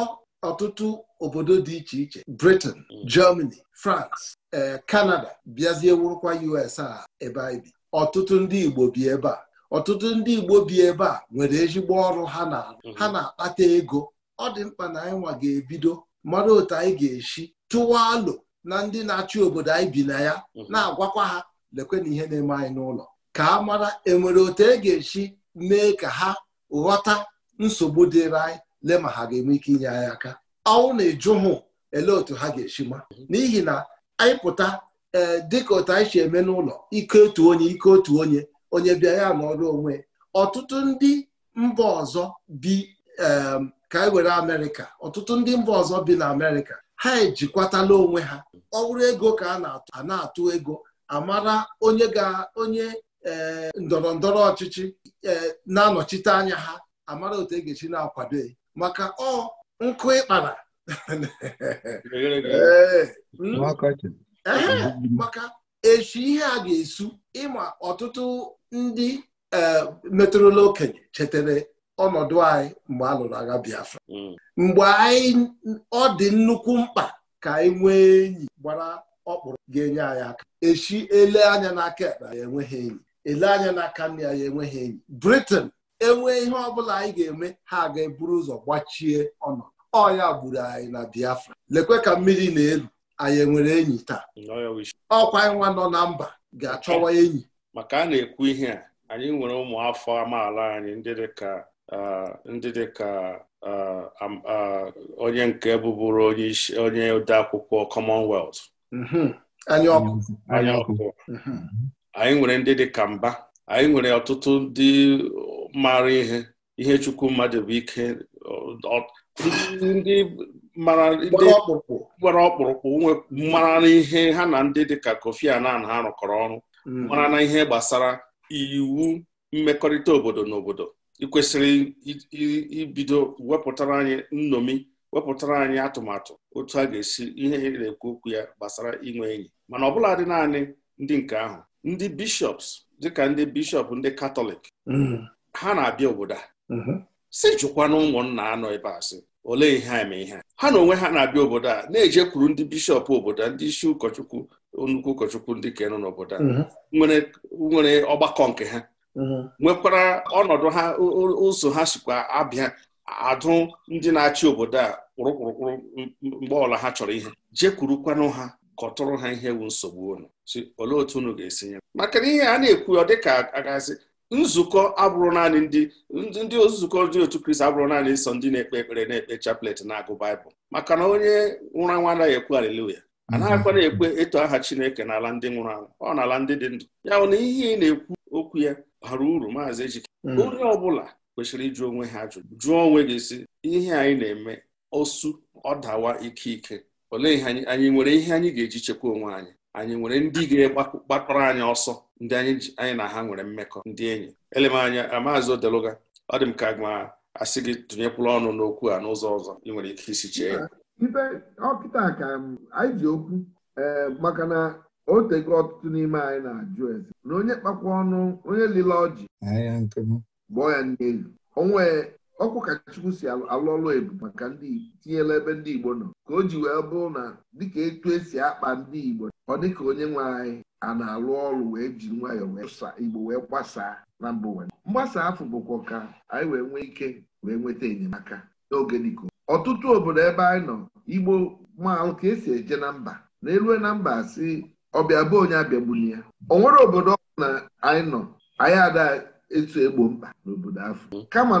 ọtụtụ obodo dị iche iche Britain mm. Germany France e, Canada bịazie wụrụkwa US a ebe anyị bi ọtụtụ ndị Igbo bi ebe a ọtụtụ ndị Igbo bi ebe a nwere ezigbo ọrụ ha na mhm. ha na-akpata ego ọ dị mkpa na anyị nwa ga-ebido mara otu anyị ga-esi tụwa alụ na ndị na-achị obodo anyị bi na ya mhm. na-agwakwa ha na ihe na-eme anyị n'ụlọ ka a mara enwere otu e ga-esi mee ka ha ghọta nsogbu dịrị anyị lee ma ha ga-enwe ike inye anyị aka ọnwụ na-eju hụ elee otu ha ga-esi ma mhm. n'ihi na anyị pụta ee eh, dịka otu anyị si eme n'ụlọ ike otu onye ike otu onye onye bịa ya nọrọ onwe ọtụtụ ndị mba ọzọ bi ka e were amerịka ọtụtụ ndị mba ọzọ bi na amerịka ha ejikwatala onwe ha ọ ego ka a na-atụ ego amara onye ga onye eh, ndọrọ ndọrọ ọchịchị eh, na-anọchite anya ha amara otu e ga-esi na-akwado maka ọ nkụ ịkpara eh, hmm? maka echi ihe a ga-esu ịma ọtụtụ ndị e, metụrụla okenye chetara ọnọdụ anyị mgbe a lụrụ agha Biafra mm. mgbe anyị ọ dị nnukwu mkpa ka anyị nwee enyi gbara ọkpụrụ ga-enye anyị aka echi ele anya n'aka ekpe ya enweghị enyi ele anya n'aka nne ya enweghị enyi Britain enwee ihe ọbụla anyị ga-eme ha ga-eburu ụzọ gbachie ọnọdụ ọ ya gburu anyị na Biafra lekwe ka mmiri na-elu anyị enwere enyi taa mm, ọkwa nwa nọ na mba ga-achọwa enyi maka a na-ekwu ihe a anyị nwere ụmụafọ amaala anyị ndị dịka ndị dịka onye nke bụbụrụ onye odeakwụkwọ Commonwealth mm-hmm. anyị ọkụ anyị mm-hmm. nwere ndị dị ka mba anyị nwere ọtụtụ ndị mara ihe ihe chukwu mmadụ bụ ike ndị mara ọkpụrụkpụ nwere mara ihe ha na ndị dị ka Kofi anan ha rụkọrọ ọrụ Mm. mara na ihe gbasara iwu mmekọrịta obodo na obodo ịkwesịrị ibido wepụtara anyị nnomi wepụtara anyị atụmatụ otu a ga-esi ihe e na-ekwu okwu ya gbasara inwe enyi mana ọbụla dị naanị ndị nke ahụ ndị bishọps dịka ndị bishọp ndị katọlik mm-hmm. ha na-abịa obodo a mm-hmm. si jụkwana ụmụnna anọ ebe a sị olee ihe eme ihe ha na onwe ha na-abịa obodo a na-ejekwuru ndị bishọp obodo ndị isi ụkọchukwu nnukwu ụkọchukwu ndị kenu n'obodo a mhm. nwere ọgbakọ nke ha mhm. nwekwara ọnọdụ ha ụzọ ha sikwa abịa adụ ndị na-achị obodo a kpụrụkpụrụkpụrụ mgbe ọla ha chọrọ ihe jekwurukwanụ ha kọtụrụ ha ihe ewu nsogbu unu olee otu unu ga-esi nye maka na ihe a na-ekwu ọ dịka ka agazi nzukọ abụrụ naanị ndị ndị nzukọ ndị otu kristi abụrụ naanị nsọ ndị na-ekpe ekpere na-ekpe chaplet na-agụ baịbụl maka na onye nwụrụ nwa anaghị ekwu haleluya Mhm. a na-akwana ekwe eto aha Chineke n'ala ndị nwụrụ anwụ ọ n'ala ndị dị ndụ ya na ihe ị na-ekwu okwu ya bara uru maazị Ejike mhm. onye ọ bụla kwesịrị ịjụ onwe ha ajụjụ jụọ onwe gị si ihe anyị na-eme osu ọ dawa ike ike olee ihe anyị nwere ihe anyị ga-eji chekwa onwe anyị anyị nwere ndị ga-gbakọrọ anyị ọsọ ndị anyị na ha nwere mmekọ ndị enyi elemanya maazị Odeluga ọ dị m ka ma asị gị tụnyekwula ọnụ n'okwu a n'ụzọ ọzọ ị nwere ike isi chee ya mhm. ibe ọkịta ka um, anyị ji okwu um, maka na o tego ọtụtụ n'ime anyị na-ajụ eze na onye kpakwa ọnụ onye lile ọjị gbọọ ya n'elu onwe ọkụ ka Chukwu si alụ ọlụ ebu maka ndị Igbo tinyela ebe ndị Igbo nọ ka o ji wee bụrụ na dịka etu esi akpa ndị Igbo ọ dịka onye nwe anyị a na-alụ ọrụ wee ji nwayọọ wee Igbo wee gbasaa na mba ụwa mgbasa afọ bụkwa ka anyị wee nwee ike wee nweta enyemaka n'oge dịka ọtụtụ obodo ebe anyị nọ igbo maalụ ka esi eje na mba na elue na mba si ọbịa bụ onye abịagbuli ya o nwere obodo ọ na anyị nọ anyị ada etu egbo mkpa n'obodo afọ kama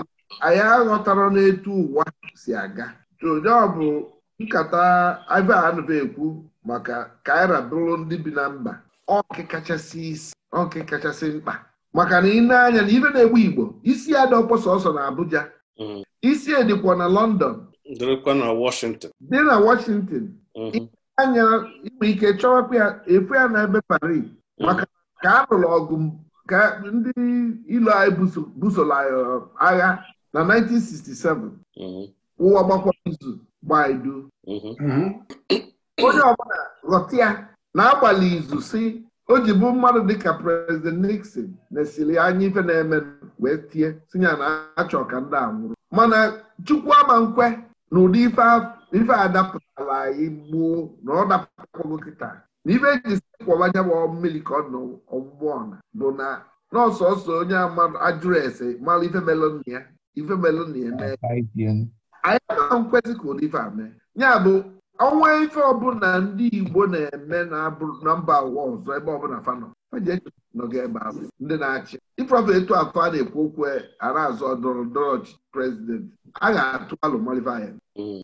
anyị aghọtara n'etu ụwa si aga onye ọ bụ nkata iva anụba ekwu maka kaira bụrụ ndị bi na mba ọkị kachasị isi kachasị mkpa maka na ị na-anya na ife na-egbu igbo isi ya dị ọkpọsọ ọsọ na Abuja mm. isi edikwa na London dịrịkwa na Washington dị na Washington mhm. anya inwe ike chọwapụ ya efu ya na ebe Paris mhm. maka ka a lụrụ ọgụ ka ndị ilo anyị busoro uh, agha na 1967 mhm. ụwa gbakwara izu gbaa idu onye ọbụla ghọta ya na-agbalị izu si o ji bụ mmadụ dịka prezident Nixon na-esiri anya ife na-eme wee tie tinye na achọ ka ndị a nwụrụ mana Chukwu ama nkwe n'ụdị ife a anyị gbuo na ọ dapụtakwagho kịta na ife eji bụ mmiri ka ọ nọ ọna bụ na n'ọsọsọ onye ajụrụ ese mara ife melon ya ife melon ya anyị anaghị nkwesị ka ụdị ife a mee ya bụ ọnwa ife ọbụla ndị Igbo na-eme na mba ụwa ọzọ ebe ọbụla fanọ nọga ebe ahụ ndị na-achị ịprọfụ etu afọ a na-ekwu okwu ara azụ azọ ndọrọ ọchịchị prezidenti a ga-atụ alụmalivaya mm.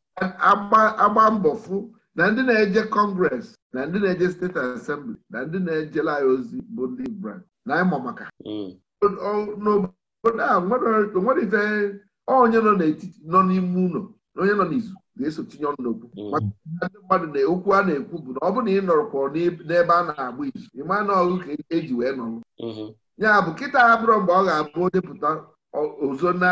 agba mbọ fụ na ndị na-eje kọngres na ndị na-eje steeti asembli na ndị na-ejela ya ozi bụ ndị brand na ịmụ maka mm. n'obodo a nwere ife onye nọ n'etiti nọ n'ime ụlọ onye nọ n'izu ga-eso tinye ọnụ n'okwu mm. ndị mmadụ na okwu a na-ekwu bụ na ọ bụrụ na ị nọrọkwọrọ n'ebe a na-agba izu ịma na ọgụ ka eji e wee nọrọ mm-hmm. ya bụ kịta abụrụ mgbe ọ ga-abụ depụta ozo na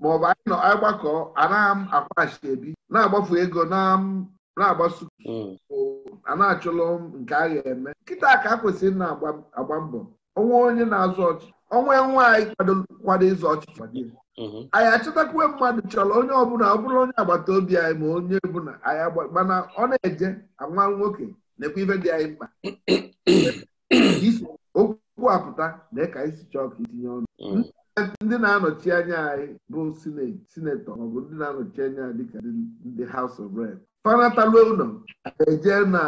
maọbụ anyị nọ agbakọ anaghị akwaghachi ebi na-agbafu ego na-agbaso mm. a na-achụlụ nke a ga-eme nkịta ka a kwesịrị na-agba mbọ onwe onye na-azụ ọchị onwe nwaanyị kwado ịzụ ọchịchị Mhm. anyị achọtakwa mmadụ chọrọ onye ọbụla ọ bụrụ onye agbata obi anyị ma onye bụla anyị mana ọ na-eje nwa nwoke na-ekwe ife dị anyị mkpa okwu apụta na ka anyị si chọọ ka itinye ọnụ mhm. ndị na-anọchi anya anyị bụ sinetọ maọbụ ndị na-anọchi anya dịka ndị House of Reps fanataluo ụlọ eje na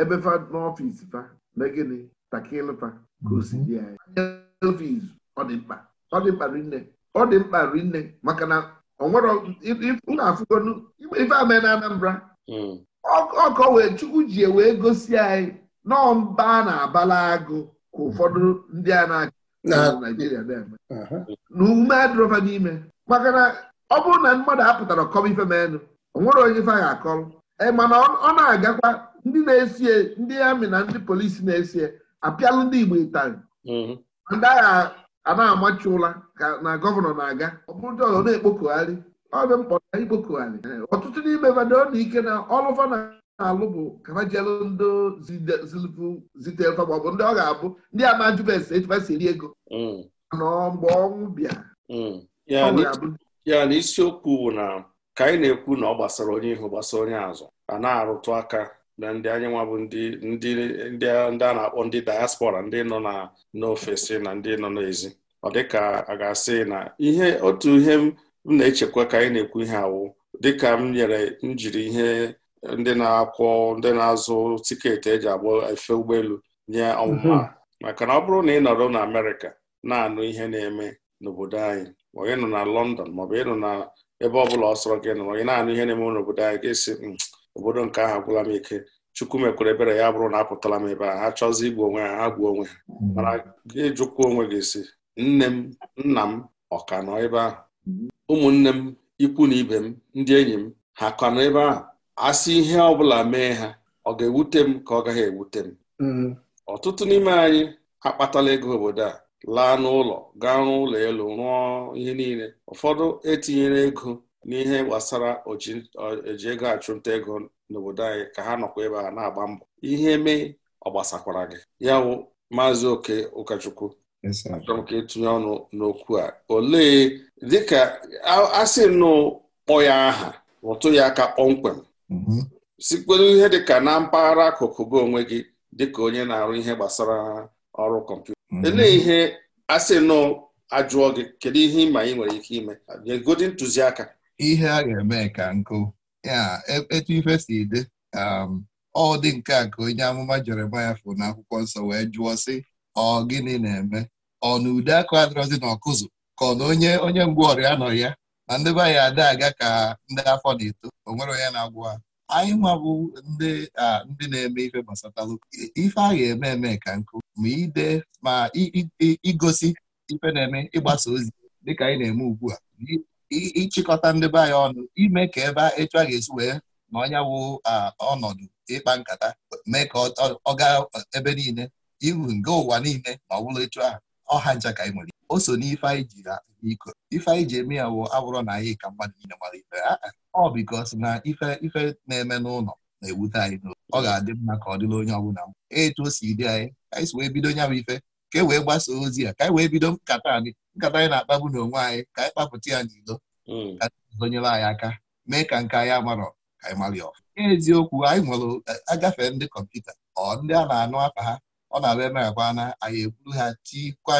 ebe fa n'ọfịs fa na gịnị takilfa ka o si dị anyị ọ dị mkpa ọ dị mkpa nne ọ dị mkpa rinne maka na na-afụgo ife ame na Anambra ọkọ hmm. wee chukwu ji e wee gosi anyị nọọ mba a na-abala agụ ka ụfọdụ ndị a na-achị Naijiria na-eme na ume adịrọfa n'ime maka na ọ bụrụ na mmadụ apụtara kọba ife menụ onwere onye ife ga akọrọ Ma eh, mana ọ na-agakwa ndị na-esie ndị amị na ndị polisi na-esie apịalụ ndị Igbo ịtarị hmm. ndị agha a na-amachi ụla ka na gọvanọ na-aga ọ bụrụ ndị ọzọ na-ekpokogharị ọ dị mkpọ na ikpokogharị ọtụtụ n'ime mmadụ na ike na ọlụfa na-alụ bụ kabajelu ndụ zite ma ọ bụ ndị ọ ga-abụ ndị amajubes echibasi eri ego mm. nọ mgbe ọnwụ bịa mm. ya na isiokwu bụ na ka anyị na-ekwu na ọ gbasara onye ihu gbasara onye azụ a na-arụtụ aka na ndị nwa bụ ndị a na-akpọ ndị diaspora ndị nọ na n'ofesi na ndị nọ n'ezi ọ dịka a ga-asị na ihe otu ihe m na-echekwa ka anyị na-ekwu ihe awụ dịka m nyere m jiri ihe ndị na-akwọ ndị na-azụ tiketi eji agba efe ụgbọelu nye ọmụma mhm. maka na ọ bụrụ na ị nọrọ na Amerịka na-anụ ihe na-eme n'obodo anyị ma ị nọ na London maọbụ ị nọ na ebe ọ bụla ọ sọrọ gị nọrọ ị na-anụ ihe na-eme n'obodo anyị hmm, obodo nke ahụ agwụla m ike chukwu mekwere ebere ya bụrụ na apụtala m ebe a ha chọzi igbu onwe ha ha gbuo onwe ha mm. mana gị onwe gị si nne m nna m ọka nọ ebe ahụ ụmụnne m ikwu na ibe m ndị enyi m ha ka nọ ebe ahụ asị ihe ọ bụla mee ha ọ ga-ewute m ka ọ gaghị ewute m mm. ọtụtụ n'ime anyị akpatala ego obodo a laa n'ụlọ gaa rụọ ụlọ elu rụọ ihe niile ụfọdụ etinyere ego n'ihe gbasara oji ego achụnta ego n'obodo anyị ka ha nọkwa ebe a na-agba mbọ ihe mee ọ gbasakwara gị ya wụ maazị oke ụkọchukwu achọrọ m ka etinye ọnụ n'okwu a olee dịka asị nnụ kpọ ya aha ụtụ ya aka kpọmkwem mm-hmm. sikwelu ihe dịka na mpaghara akụkụ gị onwe gị dịka onye na-arụ ihe gbasara ọrụ kọmputa mm-hmm. olee ihe asị ajụọ gị kedu ihe ịma ị nwere ike ime nye godi ntụziaka ihe a ga-eme ka nkụ ya e, etu ife si dị um, ọ dị nke a ka onye amụma Jeremaya fụ na akwụkwọ nsọ wee jụọ sị ọ gịnị na-eme ọ na ude akụ adịrọzi na ọkụzụ ka ọ na onye onye mgbe ọrịa nọ ya na ndị be anyị ada aga ka ndị afọ na-eto o nwere onye na-agwụ ha anyị nwa bụ ndị ndị na-eme ife gbasatalụ ife a ga-eme eme ka nkụ ma ide ma igosi ife na-eme ịgbasa ozi dịka anyị na-eme ugbu a ịchịkọta ndị be anyị ọnụ ime ka ebe etu a ga-esi wee na onye wụ ọnọdụ ịkpa nkata mee ka ọ gaa ebe niile ihu nga ụwa niile ma ọ bụrụ etu a. ọha ncha ka anyị nwere o so n'ife anyị ji iko ife anyị ji eme ya wụ abụrụ na anyị ka mmadụ niile gbara ife ọ bikos na ife ife na-eme n'ụlọ na-ewute anyị n'ụlọ ọ ga-adị mma ka ọ dịla onye ọbụla etu o si dị anyị anyị si wee bido nya bụ ife ka e wee gbasaa ozi ya ka anyị e wee bido nkata anyị nkata anyị na-akpagbu n'onwe anyị ka anyị kpapụta ya n'ilo hmm. ka zonyere anyị aka mee ka nke anyị amarọ ka anyị mara ọfụ eziokwu anyị nwere agafe ndị kọmputa ọ ndị a na-anụ afa ha ọ na abịa ebe agwa na anyị egburu ha tikwa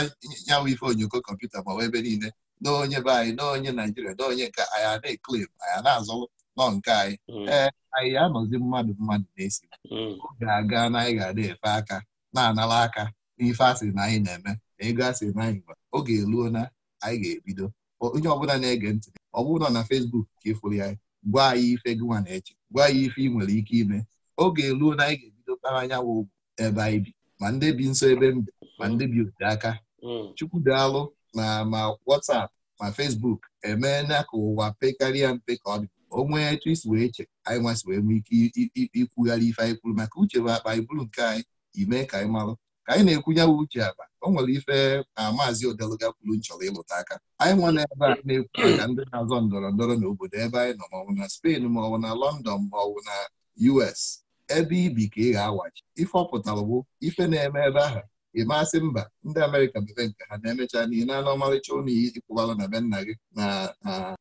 nyanwụ ife onyoko kọmputa ma ebe niile na onye be anyị na onye naijiria na onye nke anyị ana-eklem anyị na-azụ nọ nke anyị hmm. ee anyị anọzi mmadụ mmadụ na-esi hmm. oge aga na anyị ga-ada efe aka na-anara aka n'ife asịrị na anyị na-eme na ego asịrị na anyị nwere oge eruo na anyị ga-ebido onye ọbụla na-ege ntị ọ bụrụ na na Facebook ka ịfụrụ ya gwa anyị ife gị na-eche gwa anyị ife ị nwere ike ime oge eruo na anyị ga-ebido kpara anyanwụ ugwu ebe anyị bi ma ndị bi nso ebe mbe ma ndị bi ote aka hmm. chukwu daalụ na ma watsap ma fesbuk emee na ka ụwa pekarịa mpe ka ọ dị o nwee etu isi wee che anyị nwasị wee nwee ike ikwugharị ife anyị kwuru maka uche bụ akpa anyị bụrụ nke anyị imee ka anyị marụ ka anyị na-ekwunye bụ uche aba o nwere ife na maazị odeluga kwuru nchọrọ ịlụta aka anyị na ebe a na-ekwu maka ndị na-azọ ndọrọ ndọrọ n'obodo ebe anyị nọ maọbụ na Spain maọbụ na London maọbụ na US ebe ibi ka ị ga-awachi ife ọpụtara bụ ife na-eme ebe ahụ ịmasị mba ndị Amerịka bebee nke ha na-emecha na ị na-anụ ọmarịcha ụnụ ikwụbara na be nna gị na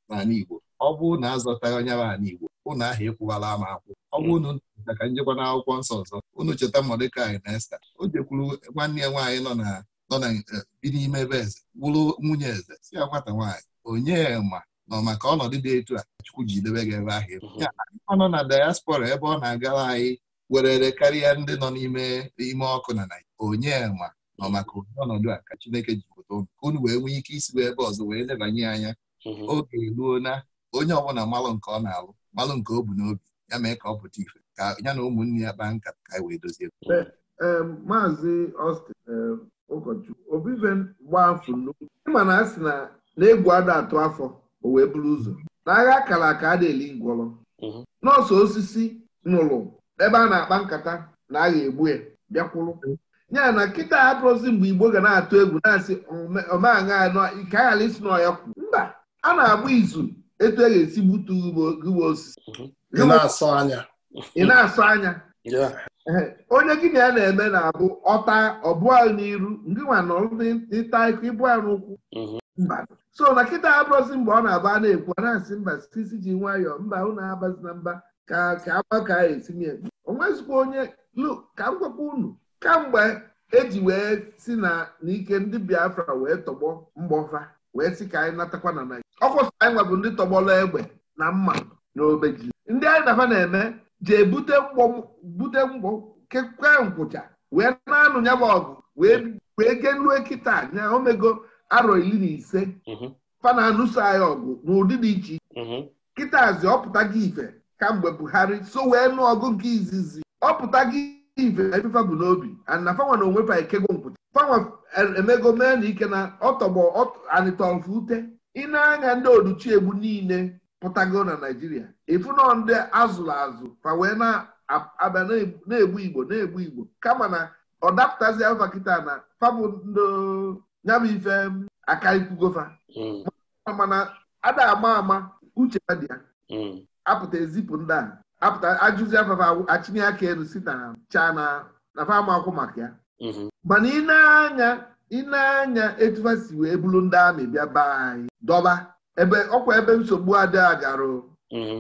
ala Igbo ọ bụ na azọta onye ahụ n'Igbo ụnụ ahụ ekwuwala ama akwụ ọ bụ na hmm. unu cheta ka njikwa n'akwụkwọ nsọ ọzọ unu cheta Mọdekai na Esta o jekwuru nwanne ya nwaanyị nọ na nọ na eh, bi n'ime ebe eze wụrụ nwunye eze si ya nwata nwaanyị onye ma nọ maka ọnọdụ dị etu a Chukwu ji debe gị ebe ahụ hmm. ọ nọ na diaspora ebe ọ na-agara anyị werere karịa ndị nọ n'ime ime ọkụ na Naịjirịa onye ma nọ maka onye ọnọdụ a ka Chineke ji pụta ụnụ ka unu wee nwee ike isi ebe ọzọ wee lebanye anya hmm. oge eruo onye ọbụla malụ nke ọ na-alụ malụ nke o bu n'obi ya mee ka ọ pụta ife ka ya na ụmụnne ya kpaa nkata ka anyị e wee dozie maazị Austin ụkọchukwu obibe gbaa afọ nnukwu ịma na a sị na egwu ada atụ afọ o wee bụrụ ụzọ n'agha akara aka a na-eli ngwọrọ mhm. nọọsụ osisi nụrụ ebe a na-akpa nkata na agha egbu ya bịakwụrụ ya na nkịta hapụrụzi mgbe igbo ga na-atụ egwu na-asị omeaṅa ike aghara isi n'ọya kwu mba a na-agba izu etu a e ga-esi gbutu ugbo osisi mhm. ị na-asọ anya ị na-asọ anya onye gị na ya na-eme na-abụ ọta ọbụa n'iru ndị nwa nọrọ n'ịta ịkụ ịbụ ya n'ụkwụ mhm. so na kịta abụrụzi mgbe ọ na-aba na-ekwu a na-asị mba sisi ji nwayọọ mba unu abazi na mba ka ka agbaka etinye onwezikwa onye ka m gwakwa unu kamgbe eji wee si na n'ike ndị Biafra wee tọgbọ mgbọfa wee sị ka anyị natakwa na Naịjirịa ọkwụ anyị anyị bụ ndị tọgbọrọ egbe na mma na ji. ndị anyị dafa na-eme jee bute bute mgbọ kekwe nkwụcha wee na-anụ ya ọgụ wee genue kịta nya omego arọ iri na ise mhm. fana na-anụso anyị ọgụ n'ụdị dị iche iche mhm. kịtazi ọpụta gị ife kamgbe Buhari so wee nụ ọgụ nke izizi ọpụta gị ife n'obi ana fanwa na onwe fa ekego nkwụta fanwa emego mee na ike na ọtọgbọ anịtọfụ ute ị anya ndị oduchiegbu niile pụtago na naijiria ịfụnọ ndị azụrụ azụ fa wee na abịa na-egbu igbo na-egbu igbo kama na ọ dapụtazi alfa kịta na fabụ nyabụ ife akaikwugofa hmm. mana ada ama ama uche dị ya hmm. apụta ezipụ ndị a apụta ajụzi afafa achịnye aka elu si na cha na akwụ maka ya mhm. mana ị na-anya ị anya etufa si wee bụrụ ndị amị bịa be anyị dọba ebe ọkwa ebe nsogbu ada garụ mhm.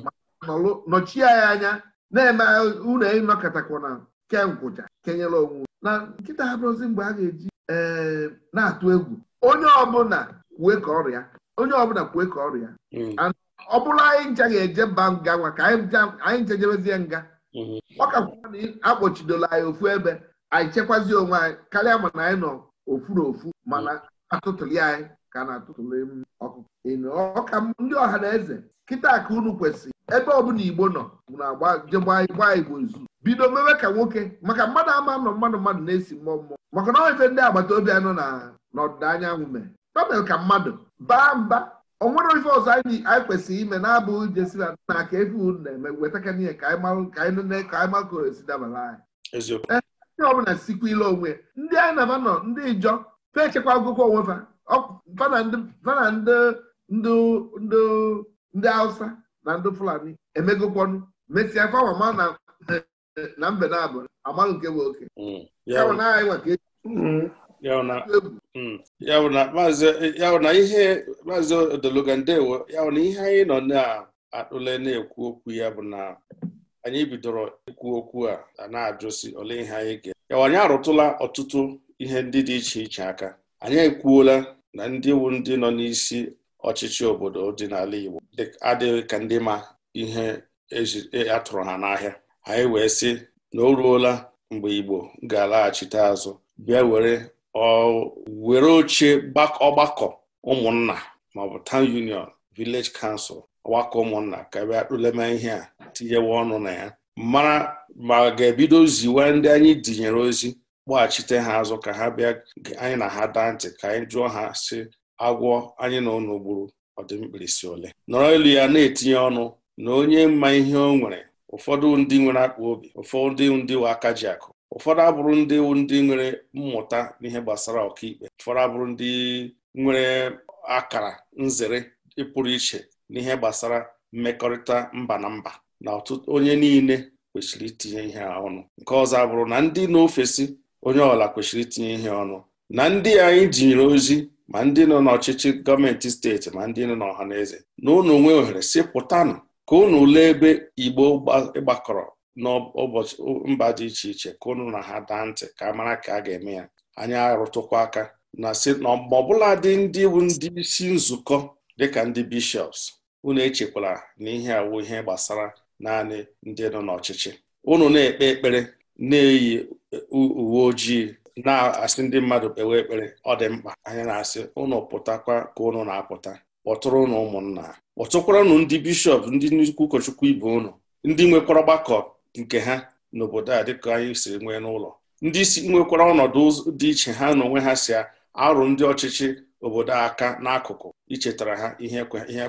nọchie anyị anya na-eme unu ịnọkọtakwana kenkwụcha kenyere onwe na nkịta abụrụzi mgbe a ga-eji eh, na-atụ egwu onye ọbụla kwue ka ọrịa onye ọbụla kwue ka ọrịa. Mhm. ọ bụrụ anyị ncha ga-eje mba nga nwa ka anyị jebezie nga ọ mhm. ka kwụọ na akpọchidola anyị ofu ebe anyị chekwazie onwe anyị karịa mana anyị nọ ofu ofu mana mhm. atụtụli anyị ka na-atụtụli ọkụkọ ọka ndị ọha na eze kịta ka unu kwesịrị ebe ọbụla igbo nọ bụ na jegba igbo zu bido mewe ka nwoke maka mmadụ ama nọ mmadụ mmadụ na-esi mmụọ mmụọ maka na ife ndị agbata obi anyị nọ ọdịda anyanwụ mere ka mmadụ baa mba o nwere ife ọzọ anyị kwesịrị ime na abụ jesi na nna aka efe unu na-eme weta ka ihe ka anyị makoro esi dabara anyị ndị bụla sikwa ile onwe ndị anyị na nọ ndị ijọ fechekwa echekwa agụkọ onwe fa na ndị hausa na ndị fulani emegokwọnụ mesia fama na mbe na abụ amalụ nke bụ oke mm, ya mm, na ihe maazị odologa ndewo na ihe anyị nọ na-atụle na-ekwu okwu ya bụ na anyị bidoro ikwu okwu a na-ajụsi ole ihe anyị ga ya anyị arụtụla ọtụtụ ihe ndị dị iche iche aka anyị ekwuola na ndị wu ndị nọ n'isi ọchịchị obodo dị n'ala Igbo adịghị ka ndị ma ihe e, atụrụ ha n'ahịa anyị wee sị na o ruola mgbe Igbo ga-alaghachite azụ bịa were were oche ọgbakọ ụmụnna maọbụ town union village council ọgbakọ ụmụnna ka bịa akpụlema ihe a tinyewe ọnụ na ya mara ma ga-ebido ziwe ndị anyị dinyere ozi gbaghachite ha azụ ka ha bịa anyị na ha daa ntị ka anyị jụọ ha si agwọ anyị na ụnụ gburu ọdịmkpirisi ole nọrọ elu ya na-etinye ọnụ na onye mma ihe o nwere ụfọdụ ndị nwere akpa obi ụfọdụ ndị nwe aka ji akụ ụfọdụ abụrụ ndị ndị nwere mmụta n'ihe gbasara ọkaikpe ụfọdụ abụrụ ndị nwere akara nzere pụrụ iche n'ihe gbasara mmekọrịta mba na mba na ọtụtụ onye niile kwesịrị itinye ihe ọnụ nke ọzọ abụrụ na ndị na-ofesi onye ọla kwesịrị itinye ihe ọnụ na ndị anyị jinyere ozi ma ndị nọ n'ọchịchị gọọmenti steeti ma ndị nọ n'ọha na eze na unu ohere si pụtanụ ka unu lee ebe igbo gbakọrọ n'ụbọchị mba dị iche iche ka ụnụ na ha daa ntị ka a mara ka a ga-eme ya anyị arụtụkwa aka na si na ọbụla dị ndị bụ ndị isi nzukọ dịka ndị bishọps, unu echekwala na ihe awụ ihe gbasara naanị ndị nọ n'ọchịchị unu na-ekpe ekpere na-eyi uwe ojii na-asị ndị mmadụ kpewe ekpere ọ dị mkpa anyị na-asị unu pụtakwa ka unu na-apụta kpọtụrụ unu ụmụnna kpọtụkwara ụnụ ndị bishọp ndị nnukwu ụkọchukwu ibe unu ndị nwekwara ọgbakọ nke ha n'obodo a dịka anyị siri nwee n'ụlọ ndị isi nwekwara ọnọdụ dị iche ha na onwe ha si arụ ndị ọchịchị obodo aka n'akụkụ ichetara ha ihe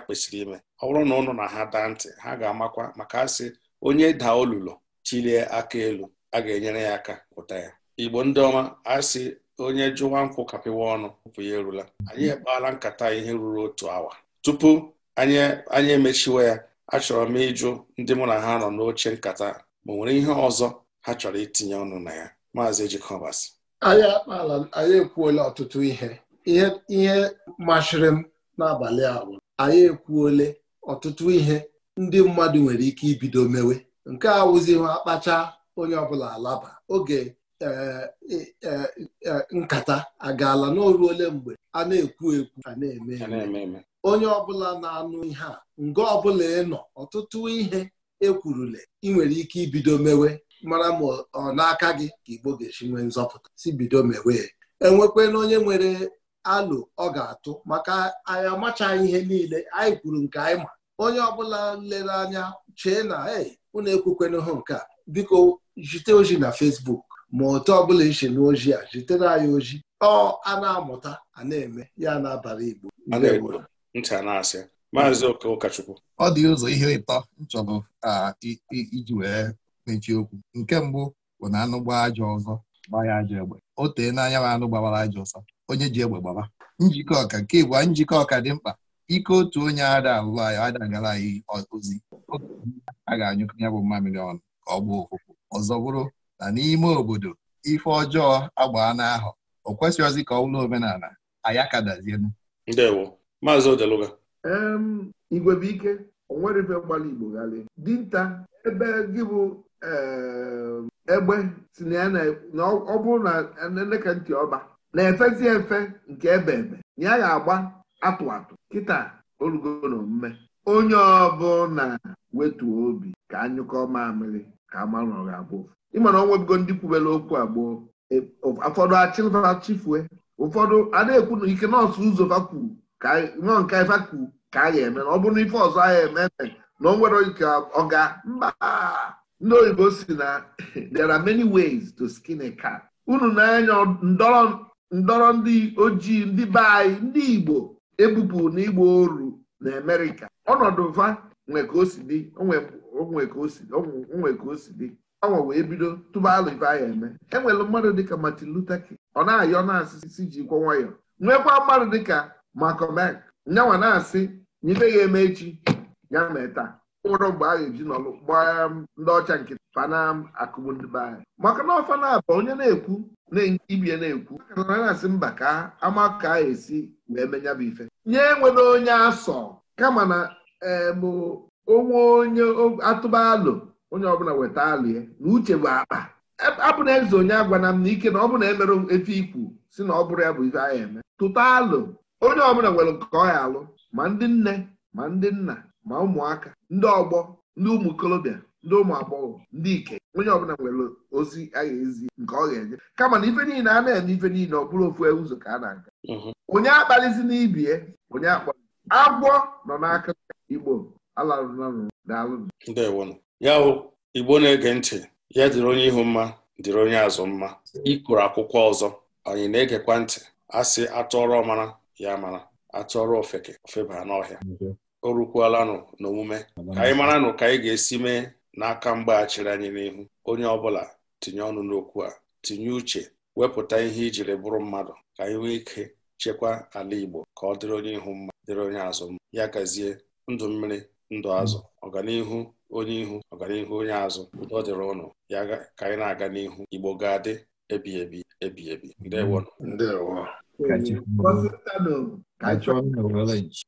kwesịrị ime ọ bụrụ na ụnụ na ha daa ntị ha ga-amakwa maka asị onye daa olulo chilie aka elu a ga-enyere ya aka pụta ya igbo ndị ọma asị onye jụwa nkwụ kapịwa ọnụ ụpụ ya erula anyị ekpala nkata ihe ruru otu awa tupu anyị emechiwa ya achọrọ m ịjụ ndị mụ na ha nọ n'oche nkata ma nwere ihe ọzọ ha chọrọ itinye ọnụ na ya maazị ejikọbasị anyị akpala anyị ekwuola ọtụtụ ihe ihe masịrị m n'abalị a anyị ekwuole ọtụtụ ihe ndị mmadụ nwere ike ibido mewe nke a wụzighị akpacha onye ọbụla alaba oge e, e, e, nkata agaala n'oruole mgbe a na-ekwu ekwu a na-eme eme onye ọbụla na-anụ ihe a nga ọbụla ịnọ ọtụtụ ihe ekwurule ị nwere ike ibido mewe mara ma ọ n'aka gị ka Igbo ga-esi nwee nzọpụta si bido mewe enwekwana onye nwere alụ ọ ga-atụ maka anyị amachaghị ihe niile anyị kwuru nke anyị ma onye ọbụla lere anya chee na ei na ekwukwena hụ nke a biko jite ozi na Facebook ma otu ọbụla iche na a jitere anyị ozi ọ a na-amụta a na-eme ya na-abara Igbo ntị a na-asị maazị ụkọchukwu ọ dị ụzọ ihe ịtọ nchọrọ iji wee mechie okwu nke mbụ bụ na anụ gbaa aja ọzọ gbaa ya aja egbe o tee n'anya ma anụ gbawara aja ọsọ onye ji egbe gbaba njikọ ọka nke bụ njikọ ọka dị mkpa ike otu onye ada alụlụ anyị ada gara anyị ozi a ga-anyụkọ ya bụ mmamịrị ọnụ ka ọ gbaa ofụfụ ọzọ bụrụ na n'ime obodo ife ọjọọ agbaa n'ahụ o kwesịghịzi ka ọ bụrụ omenala anyị akadazienu maazị odeluga Igwebuike onwere ife gbara Igbo ghalị dinta ebe gị bụ egbe si na ya ọ bụrụ na eleka ntị ọba na-efezi efe nke ebe ebe ya ga-agba atụ atụ kịta na mme onye na wetuo obi ka anyụkọ mamịrị ka amanụ ọ ga-abụ ma na ndị kwubere okwu agboo e, ụfọdụ chifue ụfọdụ a ike nọọsụ ụzọ fa nọ nke ife ka a ga-eme na ọ bụrụ na ife ọzọ anyị eme na onwere nwere ike ọ mba ndị oyibo si na there are many ways to skin a cat unu na-anya ndọrọ ndị ojii ndị be anyị ndị igbo ebupụ na igbo oru na amerịka ọnọdụ mfa nwe ka o si dị onwe ka o si dị ọnwa wee bido tụbalụ ife anyị eme enwere mmadụ dịka Martin Luther King ọ na-ayọ na asịsị ji kwọ nwayọ nwekwa mmadụ dịka makomek nyanwa na-asị na ife ga-eme echi ya mee taa ụrọ mgbe a ga-eji nọlụ gbaa um, ndị ọcha nke fanam um, akụmụndịbe anyị maka na ọfana onye na-ekwu ibie na-ekwu akana na-asị mba ka ama ka a esi wee menya bụ ife nye nwere onye asọ kama na bụ um, onwe onye atụba alụ onye ọbụla weta alụ ya na uche bụ akpa e, abụ na eze onye agwana m na ike na ọ bụ na emere efe ikwu si na ọ bụrụ ya bụ ife anyị eme tụta alụ onye ọbụla nwere nke ọ ya alụ ma ndị nne ma ndị nna ma ụmụaka ndị ọgbọ ndị ụmụ okorobịa ndị ụmụ agbọghọ ndị ike onye ọbụla nwere ozi a ga-ezi nke ọ ga-enye kama na ife niile a na-eme ife niile ọ bụrụ ofu ụzọ ka a na-aga mhm. onye akpalizi n'ibie onye akpali agwọ nọ n'aka igbo alarụnalụ daalụ ya hụ igbo na-ege ntị ya dịrị onye ihu mma dịrị onye azụ mma ịkụrụ akwụkwọ ọzọ anyị na-egekwa ntị a sị ọrụ mara ya mara ọrụ ofeke ofeba n'ọhịa o rukwuolanụ n'omume ka anyị mara nụ ka anyị ga-esi mee n'aka mgbaghachiri anyị n'ihu onye ọbụla tinye ọnụ n'okwu a tinye uche wepụta ihe ijiri bụrụ mmadụ ka anyị nwee ike chekwa ala Igbo ka ọ dịrị onye ihu mma dịrị onye azụ mma ya gazie ndụ mmiri ndụ azụ ọganihu onye ihu ọganihu onye azụ ọ dịrị ụnụ ya ka anyị na-aga n'ihu Igbo ga-adị ebi ebi ebi ebi ndewo Cachorro. Quando você